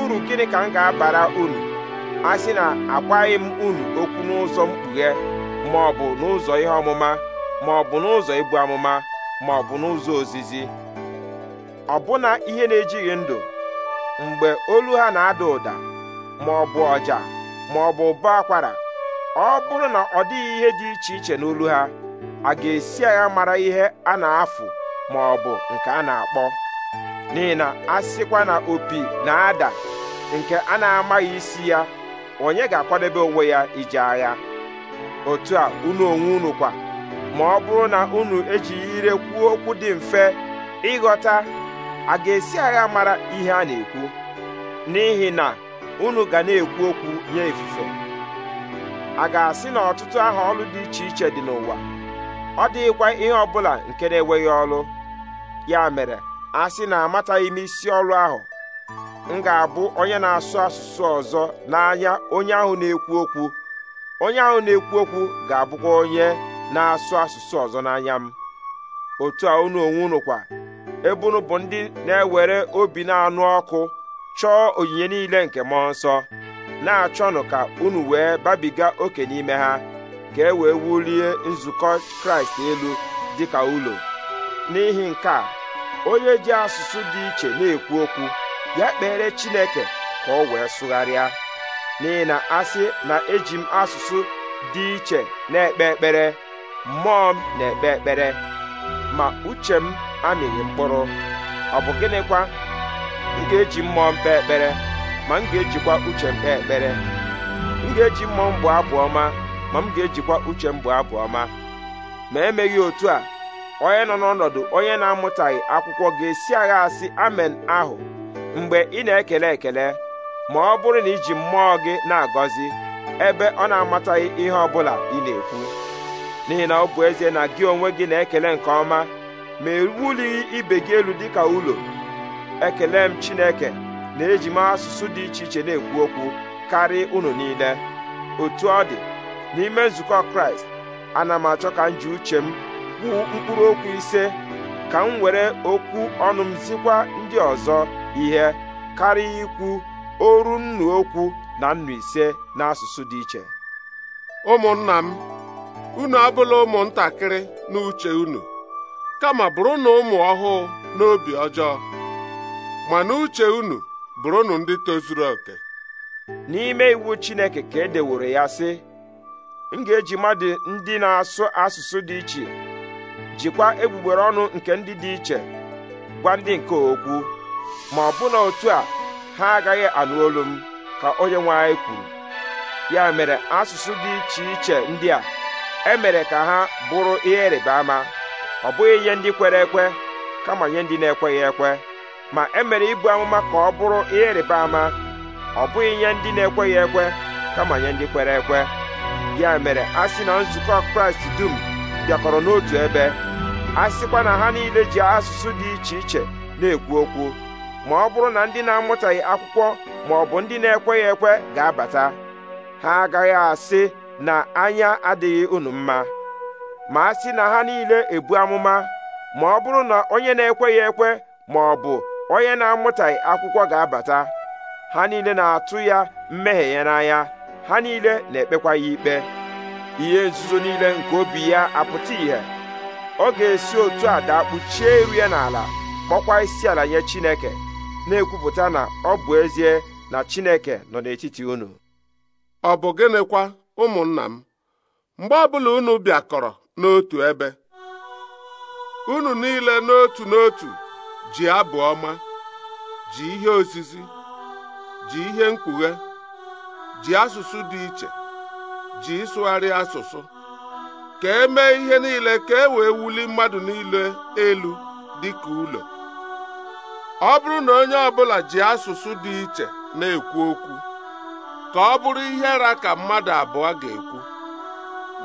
uru gịnị ka m ga-abara unu a sị na agwaghị m unu okwu n'ụzọ mkpughe ma ọ bụ n'ụzọ ihe ọmụma ma ọ bụ n'ụzọ ibu amụma ma ọ bụ n'ụzọ ozizi ọbụna ihe na-ejighị ndụ mgbe olu ha na-ada ụda ma ọ bụ ọja ma ọ bụ ụba akwara ọ bụrụ na ọ dịghị ihe dị iche iche n'olu ha a ga-esi agha mara ihe a na-afụ ma ọ bụ nke a na-akpọ n'ihi na a sịkwa na opi na-ada nke a na-amaghị isi ya onye ga-akwadebe onwe ya ije agha otu a unu onwe unu kwa ma ọ bụrụ na unu ejighị ire kwuo okwu dị mfe ịghọta a ga-esi agha mara ihe a na-ekwu n'ihi na unu ga na-ekwu okwu nye ifufe a ga-asị na ọtụtụ aha ọlụ dị iche iche dị n'ụwa ọ dịghịkwa ihe ọbụla nke na-enweghị ọlụ ya mere a sị na amataghị m isi ọrụ ahụ m ga-abụ onye na-asụ asụsụ ọzọ n'anya onye ahụ na-ekwu okwu onye ahụ na-ekwu okwu ga-abụkwa onye na-asụ asụsụ ọzọ n'anya m otu a unu onwe unu kwa ebe unu bụ ndị na-ewere obi na-anụ ọkụ chọọ onyinye niile nke mmụọ nsọ na-achọnụ ka unu wee babiga oke n'ime ha ka e wee wulie nzukọ kraịst elu dịka ụlọ n'ihi nke a onye ji asụsụ dị iche na-ekwu okwu ya kpere Chineke ka ọ wee sụgharịa n'ihi na asị na eji m asụsụ dị iche na-ekpe ekpere mmụọ m na-ekpe ekpere ma uche m amịghị mkpụrụ ọ bụ gịnịkwa m ga-eji mmụọ m kpee ekpere ma m ga-ejikwa uche m kpee ekpere m ga-eji mmụọ m bụ abụ ma m ga-ejikwa uche m bụ abụ ọma ma emeghị otu a onye nọ n'ọnọdụ onye na-amụtaghị akwụkwọ ga-esi agha asị amen ahụ mgbe ị na-ekele ekele ma ọ bụrụ na iji mmụọ gị na-agọzi ebe ọ na-amataghị ihe ọ bụla ị na-ekwu n'ihi na ọ bụ ezie na gị onwe gị na-ekele nke ọma ma ewulighị ibe gị elu dịka ụlọ ekele m Chineke na-eji m asụsụ dị iche iche na-ekwu okwu karịa unu niile otu ọ dị n'ime nzukọ Kraịst ana m achọ ka m ji uche m kwuo mkpụrụ okwu ise ka m were okwu ọnụ m zikwa ndị ọzọ ihe karịa ikwu oru nnu okwu na nnu ise n'asụsụ dị iche ụmụnna m unu abụla ụmụntakịrị n'uche unu kama bụrụnụ ụmụ ọhụụ n'obi ọjọọ ma n'uche unu bụrụnụ ndị tozuru oke n'ime iwu Chineke ka e deworo ya sị m ga-eji mmadụ ndị na-asụ asụsụ dị iche jikwa egbugbere ọnụ nke ndị dị iche gwa ndị nke okwu ma ọ na otu a ha agaghị anụ olu m ka onye nwe anyị kwuru ya mere asụsụ dị iche iche ndị a emere ka ha bụrụ ihe ịrịba ama ọ bụghị ihe ndị kwere ekwe kama nye ndị na-ekweghị ekwe ma emere ibu amụma ka ọ bụrụ ihe ịrịba ama ọ bụghị ihe ndị na-ekweghị ekwe kama nye ndị kwere ekwe ya mere a sị na nzukọ Kraịst dum bịakọrọ n'otu ebe a sịkwa na ha niile ji asụsụ dị iche iche na-ekwu okwu ma ọ bụrụ na ndị na-amụtaghị akwụkwọ ma ọ bụ ndị na-ekweghị ekwe ga-abata ha agaghị asị na anya adịghị unu mma ma a sị na ha niile ebu amụma ma ọ bụrụ na onye na-ekweghị ekwe ma ọ bụ onye na-amụtaghị akwụkwọ ga-abata ha niile na-atụ ya mmehie ya n'anya ha niile na-ekpekwa ya ikpe ihe nzuzo niile nke obi ya apụta ìhè ọ ga-esi otu a daa kpuchie iru n'ala kpọkwa isi ala nye Chineke na-ekwupụta na ọ bụ ezie na Chineke nọ n'etiti unu ọ bụ gịnịkwa ụmụnna m mgbe ọbụla unu bịakọrọ n'otu ebe unu niile n'otu n'otu ji abụ ọma ji ihe ozizi ji ihe mkpughe ji asụsụ dị iche ji ịsụgharị asụsụ ka e mee ihe niile ka e wee wuli mmadụ niile elu ka ụlọ ọ bụrụ na onye ọbụla ji asụsụ dị iche na-ekwu okwu ka ọ bụrụ ihe ra ka mmadụ abụọ ga-ekwu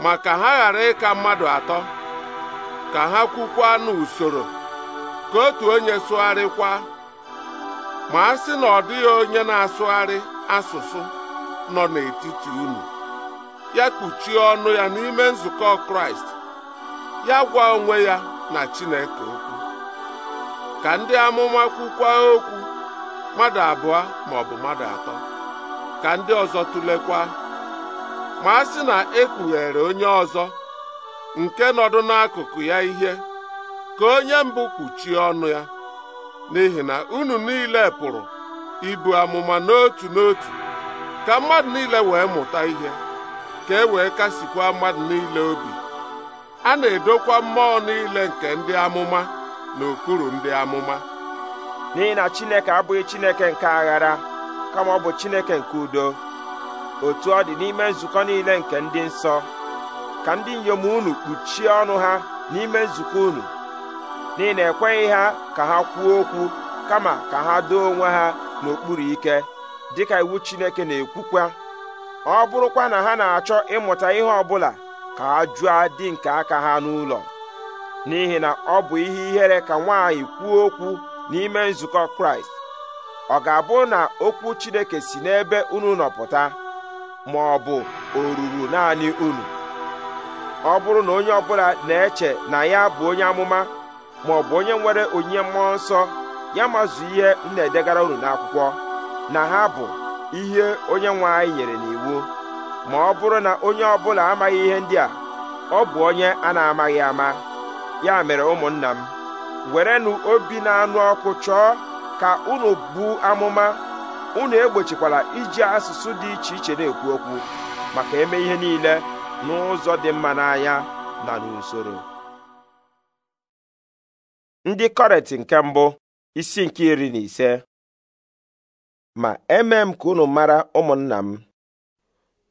ma ka ha ghara ịka mmadụ atọ ka ha kwukwa n'usoro ka otu onye sụgharịkwa ma a sị na ọ dịghị onye na-asụgharị asụsụ nọ n'etiti unu ya kpuchie ọnụ ya n'ime nzukọ kraịst ya gwa onwe ya na chineke okwu ka ndị amụma kwukwa okwu mmadụ abụọ ma ọ bụ mmadụ atọ ka ndị ọzọ tụlekwa ma a sị na ekpughere onye ọzọ nke nọdụ n'akụkụ ya ihe ka onye mbụ kpuchie ọnụ ya n'ihi na unu niile pụrụ ibu amụma n'otu n'otu ka mmadụ niile wee mụta ihe ka e wee kasikwa mmadụ niile obi a na-edokwa mmụọ niile nke ndị amụma n'okpuru ndị amụma n'ihi na Chineke abụghị Chineke nke aghara kama ọ bụ Chineke nke udo otu ọ dị n'ime nzukọ niile nke ndị nsọ ka ndị inyom unu kpuchie ọnụ ha n'ime nzukọ unu n'ihi na ekweghị ha ka ha kwuo okwu kama ka ha doo onwe ha n'okpuru ike dịka iwu Chineke na-ekwukwa ọ bụrụkwa na ha na-achọ ịmụta ihe ọbụla ka ha jụọ dị nke aka ha n'ụlọ n'ihi na ọ bụ ihe ihere ka nwaanyị kwuo okwu n'ime nzukọ kraịst ọ ga-abụ na okwu chineke si n'ebe unu nọpụta ma ọ bụ o ruru naanị unu ọ bụrụ na onye ọbụla na-eche na ya bụ onye amụma ma ọ bụ onye nwere onyinye mmụọ nsọ ya mazụ ihe m na-edegara unu n'akwụkwọ na ha bụ ihe onye nwe anyị nyere n'iwu ma ọ bụrụ na onye ọ bụla amaghị ihe ndị a ọ bụ onye a na-amaghị ama ya mere ụmụnna m werenụ obi na-anụ ọkụ chọọ ka unu bụ amụma unu egbochikwala iji asụsụ dị iche iche na-ekwu okwu maka eme ihe niile n'ụzọ dị mma n'anya na n'usoro ndị kọret nke mbụ isi nke iri na ise ma emee m ka unu mara ụmụnna m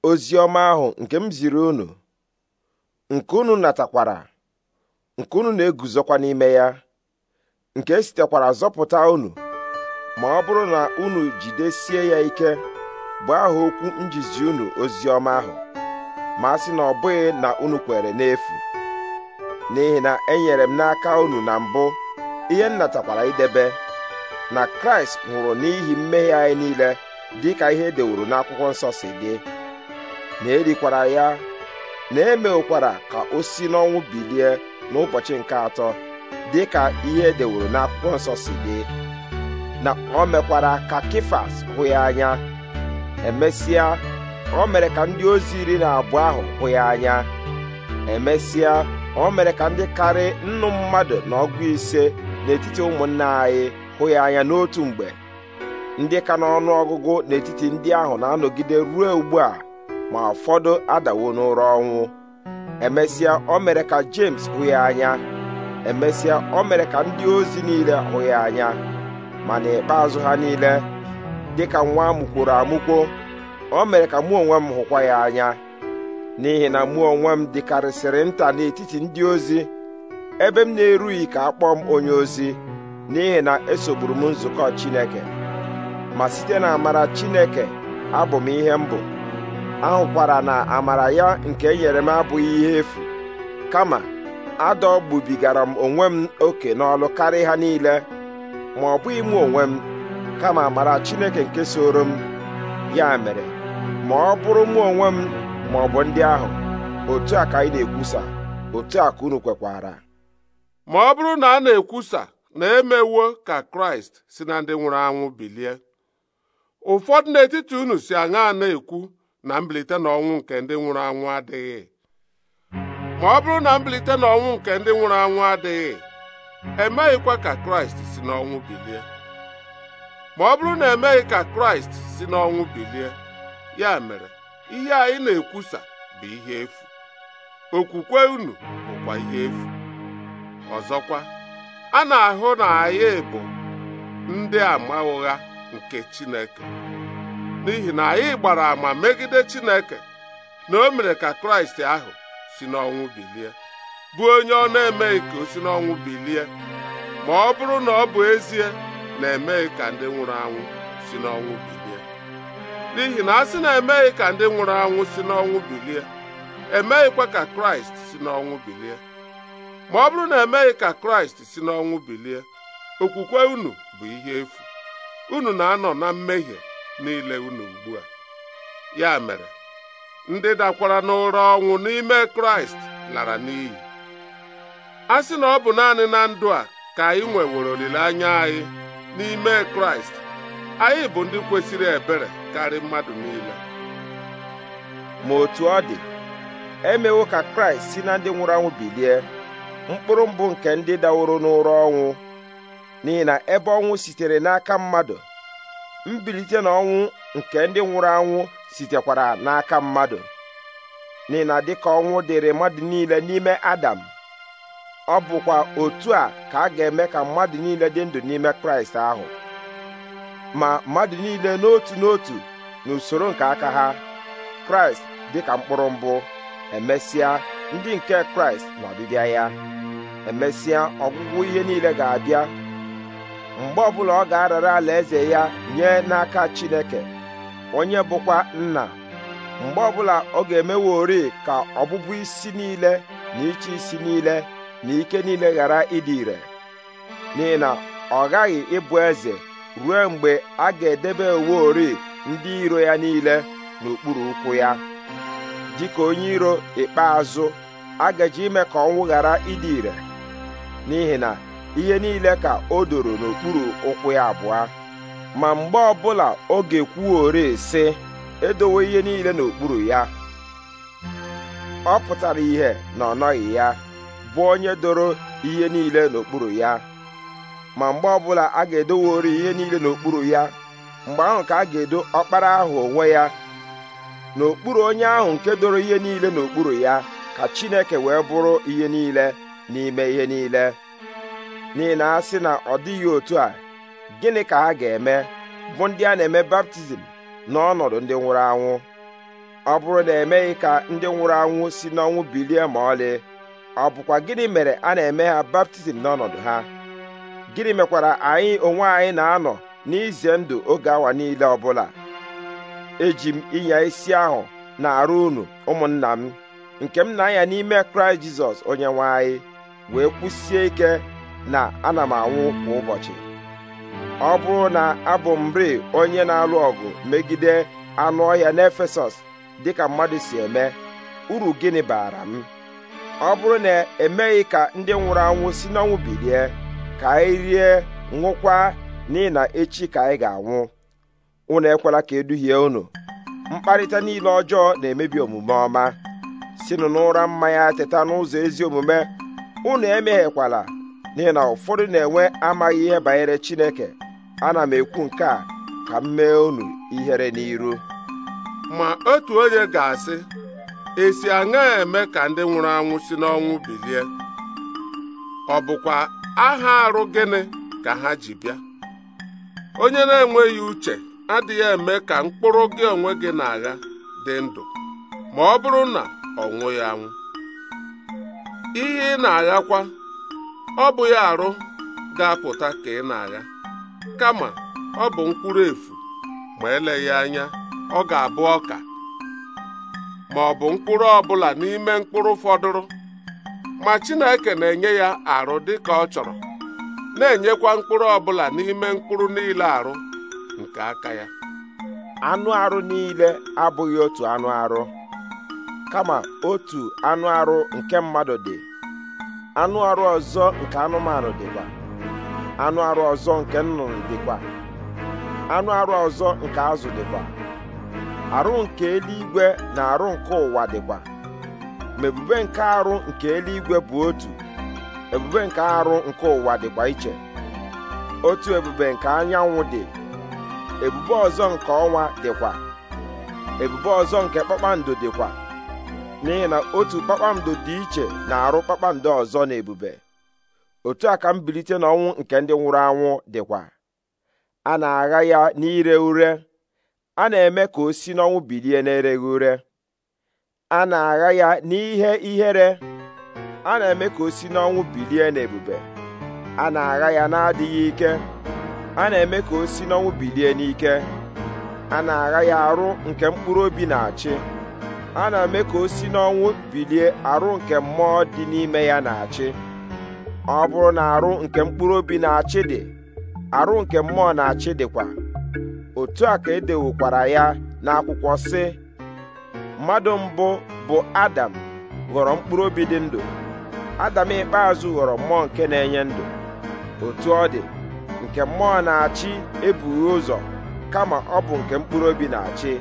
ozi ọma ahụ nke m ziri unu nke unu natakwara nke unu na-eguzokwa n'ime ya nke sitekwara zọpụta unu ma ọ bụrụ na unu jidesie ya ike bụ aha okwu njizi unu ozi ọma ahụ ma a sị na ọ bụghị na unu kwere n'efu n'ihi na enyere m n'aka unu na mbụ ihe m natakwara idebe na kraịst nwụrụ n'ihi mmehie anyị niile dị ka ihe e dewuru n'akwụkwọ nsọ si dị na erikwara ya na emekwara ka o si n'ọnwụ bilie n'ụbọchị nke atọ dị ka ihe e dewuru n'akwụkwọ nsọ si dị na o mekwara ka kifas hụ ya anya emesịa o mere ka ndị ozi iri na abụọ ahụ hụ ya anya emesịa o mere ka ndị karị nnu mmadụ na ọgụ ise n'etiti ụmụnna anyị hụ ya anya n'otu mgbe ndị ka n'ọnụ ọgụgụ n'etiti ndị ahụ na-anọgide ruo ugbu a ma ụfọdụ adawo n'ụra ọnwụ emesịa o mere ka James hụ ya anya emesịa o mere ka ndị ozi niile hụ ya anya ma n'ikpeazụ ha niile dịka nwa amụkworo amụkwo o mere ka mụ onwe m hụkwa ya anya n'ihi na mụ onwe m dịkarịsịrị nta n'etiti ndị ozi ebe m na-erughị ka akpọọ m onye ozi n'ihi na esogburu m nzukọ Chineke ma site na amara Chineke abụ m ihe m bụ ahụkwara na amara ya nke e nyere m abụghị ihe efu kama adọgbubigara m onwe m oke n'ọlụ karịa ha niile ma ọ bụghị mụ onwe m kama amara Chineke nke soro m ya mere ma ọ bụrụ mụ onwe m ma ọ bụ ndị ahụ otu a ka anyị na-ekwusa otu a ka unu kwekwara ma ọ bụrụ na a na-ekwusa na-emewo ka kraịst si na ndị nwụrụ anwụ bilie ụfọdụ n'etiti unu si aṅa na-ekwu na mbilite n'ọnwụ nke ndị nwụrụ anwụ adịghị ma ọ bụrụ na mbilite n'ọnwụ nke ndị nwụrụ anwụ adịghị emeghịkwa ka kraịst si n'ọnwụ bilie ma ọ bụrụ na emeghị ka kraịst si n'ọnwụ bilie ya mere ihe anyị na-ekwusa bụ ihe efu okwukwe unu bụkwa ihe efu ọzọkwa a na-ahụ na anyị bụ ndị ama ụgha nke Chineke n'ihi na anyị gbara ama megide Chineke na o mere ka Kraịst ahụ si n'ọnwụ bilie bụ onye ọ na-emeghị ka o si n'ọnwụ bilie ma ọ bụrụ na ọ bụ ezie na-emeghị ka ndị nwụrụ anwụ si n'ọnwụ bilie n'ihi na a sị na emeghị ka ndị nwụrụ anwụ si n'ọnwụ bilie emeghịkwa ka Kraịst si n'ọnwụ bilie ma ọ bụrụ na emeghị ka kraịst si n'ọnwụ bilie okwukwe unu bụ ihe efu unu na-anọ na mmehie niile unu ugbu a ya mere ndị dakwara n'ụra ọnwụ n'ime kraịst lara n'iyi a sị na ọ bụ naanị na ndụ a ka anyị nwewere olileanya anyị n'ime kraịst anyị bụ ndị kwesịrị ebere karị mmadụ niile ma otu ọ dị emewo ka kraịst si na ndị nwụrụ anwụ bilie mkpụrụ mbụ nke ndị daworo n'ụra ọnwụ n'ihi na ebe ọnwụ sitere n'aka mmadụ mbilite na ọnwụ nke ndị nwụrụ anwụ sitekwara n'aka mmadụ n'ihi na dịka ọnwụ dịrị mmadụ niile n'ime Adam ọ bụkwa otu a ka a ga-eme ka mmadụ niile dị ndụ n'ime Kraịst ahụ ma mmadụ niile n'otu n'otu n'usoro nke aka ha Kraịst dị ka mkpụrụ mbụ emesịa ndị nke Kraịst ọbịbịa ya emesịa ọgwụgwụ ihe niile ga-abịa mgbe ọbụla ọ ga-arara alaeze ya nye n'aka Chineke onye bụkwa nna mgbe ọbụla ọ ga-emeworị ka ọbụbụ isi niile na ịchị isi niile na ike niile ghara ịdị ire n'ihi na ọ ghaghị ịbụ eze ruo mgbe a ga-edebe oweori ndị iro ya niile n'okpuru ụkwụ ya dịka onye iro ikpeazụ a gaji ime ka ọnwụ ghara ịdị ire n'ihi na ihe niile ka o doro n'okpuru ụkwụ ya abụọ ma mgbe ọbụla oge kwuo ekwuore si edowe ihe niile n'okpuru ya ọ pụtara ihe na ọ nọghị ya bụ onye doro ihe niile n'okpuru ya ma mgbe ọbụla a ga-edowori ihe niile n'okpuru ya mgbe ahụ ka a ga-edo ọkpara ahụ onwe ya n'okpuru onye ahụ nke doro ihe niile n'okpuru ya ka Chineke wee bụrụ ihe niile n'ime ihe niile n'ihi na a sị na ọ dịghị otu a gịnị ka ha ga-eme bụ ndị a na-eme baptizim n'ọnọdụ ndị nwụrụ anwụ ọ bụrụ na emeghị ka ndị nwụrụ anwụ si n'ọnwụ bilie ma ọlị ọ bụkwa gịnị mere a na-eme ha baptizim n'ọnọdụ ha gịnị mekwara anyị onwe anyị na-anọ n'ize ndụ oge awa niile ọbụla eji m ịnya isi ahụ na-arụ unu ụmụnna m nke m na-anya n'ime kraịst jizọs onye nwe anyị wee kwusie ike na ana m anwụ kwa ụbọchị ọ bụrụ na abụ m onye na-alụ ọgụ megide anụ ọhịa n'Efesọs dịka mmadụ si eme uru gịnị baara m ọ bụrụ na emeghị ka ndị nwụrụ anwụ si n'ọnwụ bilie ka anyị rie nwụkwa n'ihi na echi ka anyị ga-anwụ unu ekwela ka eduhie unu mkparịta niile ọjọọ na-emebi omume ọma sinụ n'ụra mmanya teta n'ụzọ ezi omume unu emeghekwala n'ihi na ụfọdụ na-enwe amaghị ihe banyere Chineke ana m ekwu nke a ka m mee unu ihere n'iru ma otu onye ga-asị esi aṅa eme ka ndị nwụrụ anwụ si n'ọnwụ bilie ọ bụkwa aha arụ gịnị ka ha ji bịa onye na-enweghị uche adịghị eme ka mkpụrụ gị onwe gị na-agha dị ndụ ma ọ bụrụ na ọ nwụghị anwụ ihe ị na-aghakwa ọ bụ ya arụ ga-apụta ka ị na-agha kama ọ bụ mkpụrụ efu ma eleghị anya ọ ga-abụ ọka ma ọ bụ mkpụrụ ọbụla n'ime mkpụrụ fọdụrụ ma Chineke na-enye ya arụ dị ka ọ chọrọ na-enyekwa mkpụrụ ọbụla n'ime mkpụrụ niile arụ nke aka ya anụ arụ niile abụghị otu anụ arụ kama otu anụ arụ nke mmadụ dị anụ arụ ọzọ nke anụmanụ dịkwa anụ arụ ọzọ nke nnụnụ dịkwa anụ arụ ọzọ nke azụ dịkwa arụ nke eluigwe na arụ nke ụwa dịkwa ma ebube nke arụ nke eluigwe bụ otu ebube nke arụ nke ụwa dịkwa iche otu ebube nke anyanwụ dị ebube ọzọ nke ọnwa dịkwa ebube ọzọ nke kpakpando dịkwa n'ihi na otu kpakpando dị iche na-arụ kpakpando ọzọ na ebube otu a ka mbilite n'ọnwụ nke ndị nwụrụ anwụ dịkwa a na-agha ya n'ire ure a na-eme ka o si n'ọnwụ bilie na ere ure a na-agha ya n'ihe ihere a na-eme ka o si n'ọnwụ bilie n'ebube a na-agha ya na-adịghị ike a na-eme ka o si n'ọnwụ bilie n'ike a na-agha ya arụ nke mkpụrụ obi na-achị a na-eme ka o si n'ọnwụ bilie arụ nke mmụọ dị n'ime ya na-achị ọ bụrụ na arụ nke mkpụrụ obi na-achị dị arụ nke mmụọ na-achị dịkwa otu a ka edewokwara ya n'akwụkwọ sị mmadụ mbụ bụ adam ghọrọ mkpụrụ obi dị ndụ adam ikpeazụ ghọrọ mmụọ nke na-enye ndụ otu ọ dị nke mmụọ na-achị ebughị ụzọ kama ọ bụ nke mkpụrụ obi na-achị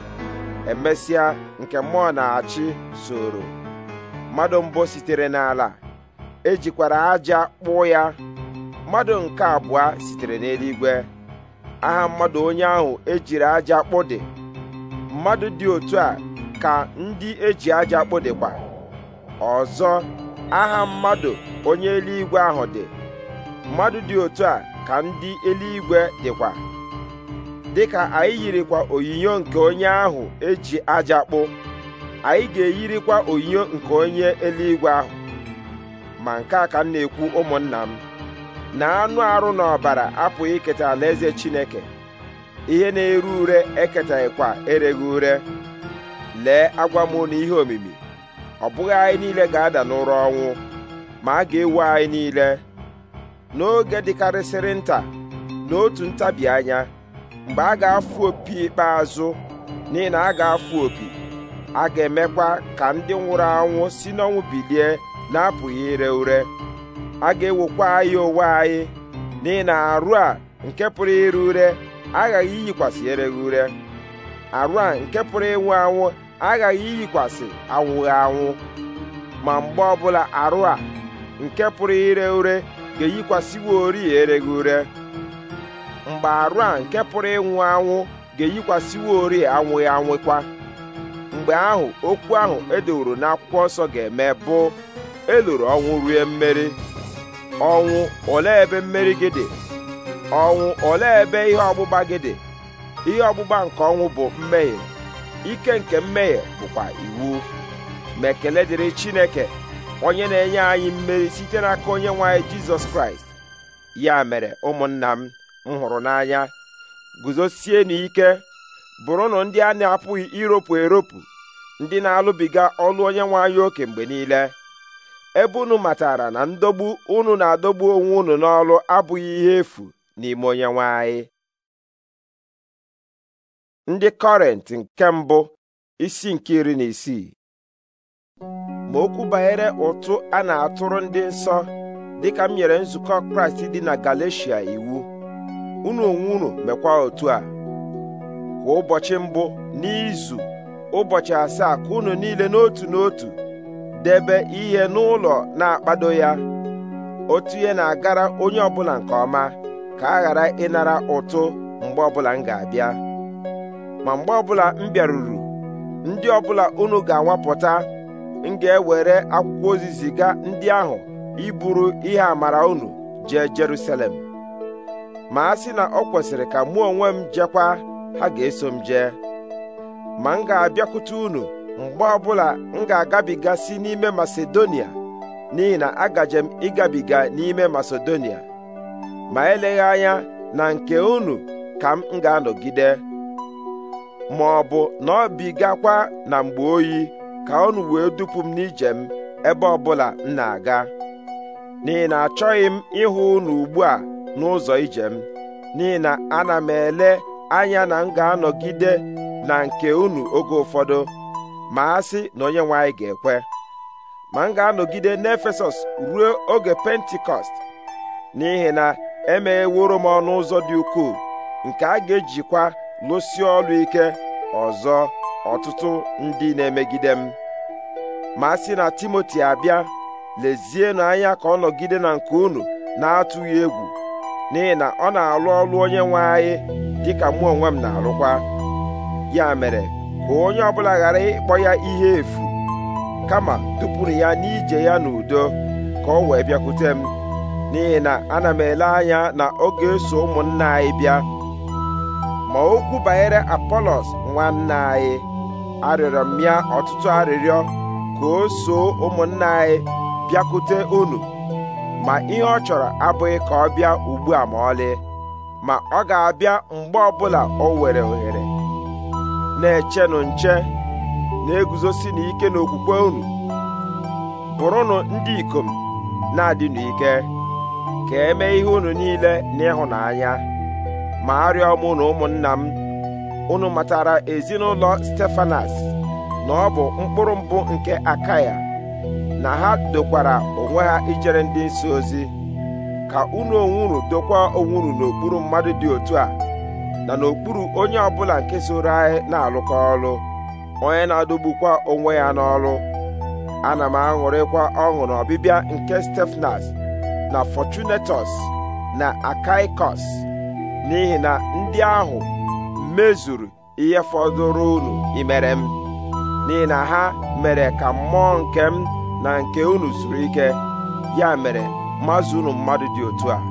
emesịa nke mmụọ na-achị soro mmadụ mbụ sitere n'ala ejikwara aja kpụ ya mmadụ nke abụọ sitere n'eluigwe aha mmadụ onye ahụ ejiri aja kpụ dị mmadụ dị otu a ka ndị eji aja kpụ dịkwa ọzọ aha mmadụ onye eluigwe ahụ dị mmadụ dị otu a ka ndị eluigwe dịkwa dịka anyị yirikwa onyinyo nke onye ahụ eji aja kpụ anyị ga-eyirikwa onyinyo nke onye eluigwe ahụ ma nke a ka m na-ekwu ụmụnna m na anụ arụ na ọbara apụghị iketa alaeze Chineke ihe na eru ure eketaghịkwa ereghị ure lee agwa m na ihe omimi ọ bụghị anyị niile ga-ada n'ụra ọnwụ ma a ga-ewu anyị niile n'oge dịkarịsịrị nta n'otu ntabi anya mgbe a ga-afụ opi ikpeazụ n'ihi na a ga-afụ opi a ga-emekwa ka ndị nwụrụ anwụ si n'ọnwụ bilie na-apụghị ire ure a ga-ewokwa anyị ụwa anyị n'ihi na arụ a nke pụrụ ire ure aghaghị iyikwasị ereghị ure arụ a nke pụrụ ịnwụ anwụ aghaghị iyikwasị anwụghị anwụ ma mgbe ọbụla arụ a nke pụrụ ire ure ga-eyikwasịwo ori ereghị ure mgbe arụ a nke pụrụ ịnwụ anwụ ga-eyikwasịwo ori anwụghị anwụkwa mgbe ahụ okwu ahụ edoworo n'akwụkwọ nsọ ga-eme bụ eloro ọnwụ rue mmeri ọnwụ ole ebe mmeri gị dị ọnwụ ole ebe ihe ọgbụgba gị dị ihe ọgbụgba nke ọnwụ bụ mmehie ike nke mmehie bụkwa iwu ma ekele dịrị Chineke onye na-enye anyị mmeri site n'aka onye nwe anyị Jizọs Kraịst ya mere ụmụnna m m hụrụ n'anya guzosie n'ike bụrụnụ ndị a na-apụghị iropu eropu ndị na-alụbiga ọlụ onye nwanyị oke mgbe niile ebe unu matara na ndogbu unu na-adọgbu onwe unu n'ọlụ abụghị ihe efu n'ime onye nwanyị ndị kọrent nke mbụ isi nke iri na isii ma okwu banyere ụtụ a na-atụrụ ndị nsọ dịka m nyere nzukọ kraịst dị na galeshia iwu unu onwe unu mekwa otu a kwa ụbọchị mbụ n'izu ụbọchị asaa ka unu niile n'otu n'otu debe ihe n'ụlọ na-akpado ya otu ihe na-agara onye ọbụla nke ọma ka a ghara ịnara ụtụ mgbe ọbụla m ga-abịa ma mgbe ọbụla m bịaruru ndị ọbụla unu ga-anwapụta m ga-ewere akwụkwọ ozi ziga ndị ahụ iburu ihe amara unu jee Jerusalem ma a sị na ọ kwesịrị ka mụ onwe m jekwa ha ga-eso m jee ma m ga-abịakwute unu mgbe ọbụla m ga-agabiga n'ime Masedonia n'ihi na agaje m ịgabiga n'ime Masedonia ma eleghị anya na nke unu ka m ga-anọgide ma ọ bụ na ọ bigakwa na mgbe oyi ka unu wee dupu m n'ije m ebe ọbụla m na-aga n'ihi na achọghị m ịhụ unu ugbu a n'ụzọ ijem n'ihi na ana m ele anya na m ga-anọgide na nke unu oge ụfọdụ ma a sị na onye nwe ga-ekwe ma m ga-anọgide n'Efesọs ruo oge pentikọst n'ihi na emegheworo m ọnụ ụzọ dị ukwuu nke a ga-ejikwa lụsi ọlụ ike ọzọ ọtụtụ ndị na-emegide m ma sị na Timoti abịa lezienụ anya ka ọ nọgide na nke unu na-atụghị egwu n'ihi na ọ na-alụ ọlụ onye nwe anyị ka mụ onwe m na-alụkwa ya mere ka onye ọbụla ghara ịkpọ ya ihe efu kama tụpụrụ ya n'ije ya n'udo ka ọ wee bịakwute m n'ihi na ana m ele anya na oge ga-eso ụmụnna anyị bịa ma okwu banyere apolos nwanne anyị arịọrọ m ya ọtụtụ arịrịọ ka o soo ụmụnna anyị bịakwute unu ma ihe ọ chọrọ abụghị ka ọ bịa ugbu a ma ọlị ma ọ ga-abịa mgbe ọbụla ọ were ohere na-echenụ nche na-eguzosi n'ike n'okwukwe unu bụrụnụ ndị ikom na-adịnụ ike ka eme ihe unu niile n'ịhụnanya ma arịọ m na ụmụnna m unu matara ezinụlọ Stefanas na ọ bụ mkpụrụ mbụ nke Akaya na ha dokwara onwe ha ijere ndị nsọ ozi ka unu onwuru unu dokwa onwe n'okpuru mmadụ dị otu a na n'okpuru onye ọbụla nke soro anyị na-alụkọ ọlụ onye na-adọgbukwa onwe ya n'ọlụ ana m aṅụrịkwa ọṅụ na ọbịbịa nke Stefnas na Fortunatus na Akaikos n'ihi na ndị ahụ mezuru ihe fọdụrụ unu imere m n'ihi na ha mere ka mmụọ nke m na nke unu zuru ike ya mere mazụ unu mmadụ dị otu a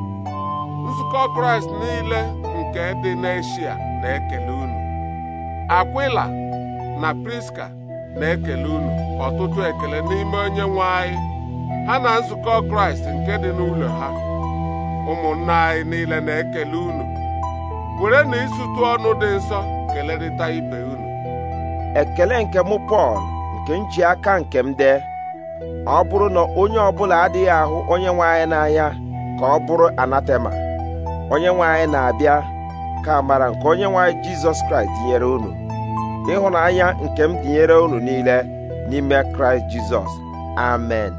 nzukọ kraịst niile nke dị n'eshia na-ekele unu akwila na priska na-ekele unu ọtụtụ ekele n'ime onye nwe anyị ha na nzukọ kraịst nke dị n'ụlọ ha ụmụnna anyị niile na-ekele unu were na ịzụtụ ọnụ dị nsọ kelerịta ibe unu ekele nke mụ pọl nke nji aka nke m dee ọ bụrụ na onye ọbụla adịghị ahụ onye nwe anyị n'anya ka ọ bụrụ anatema onye nwe anyị na-abịa ka amara nke onye nwe anyị jizọs kraịst dịnyere unu ịhụnanya nke m dịnyere unu niile n'ime kraịst jizọs amen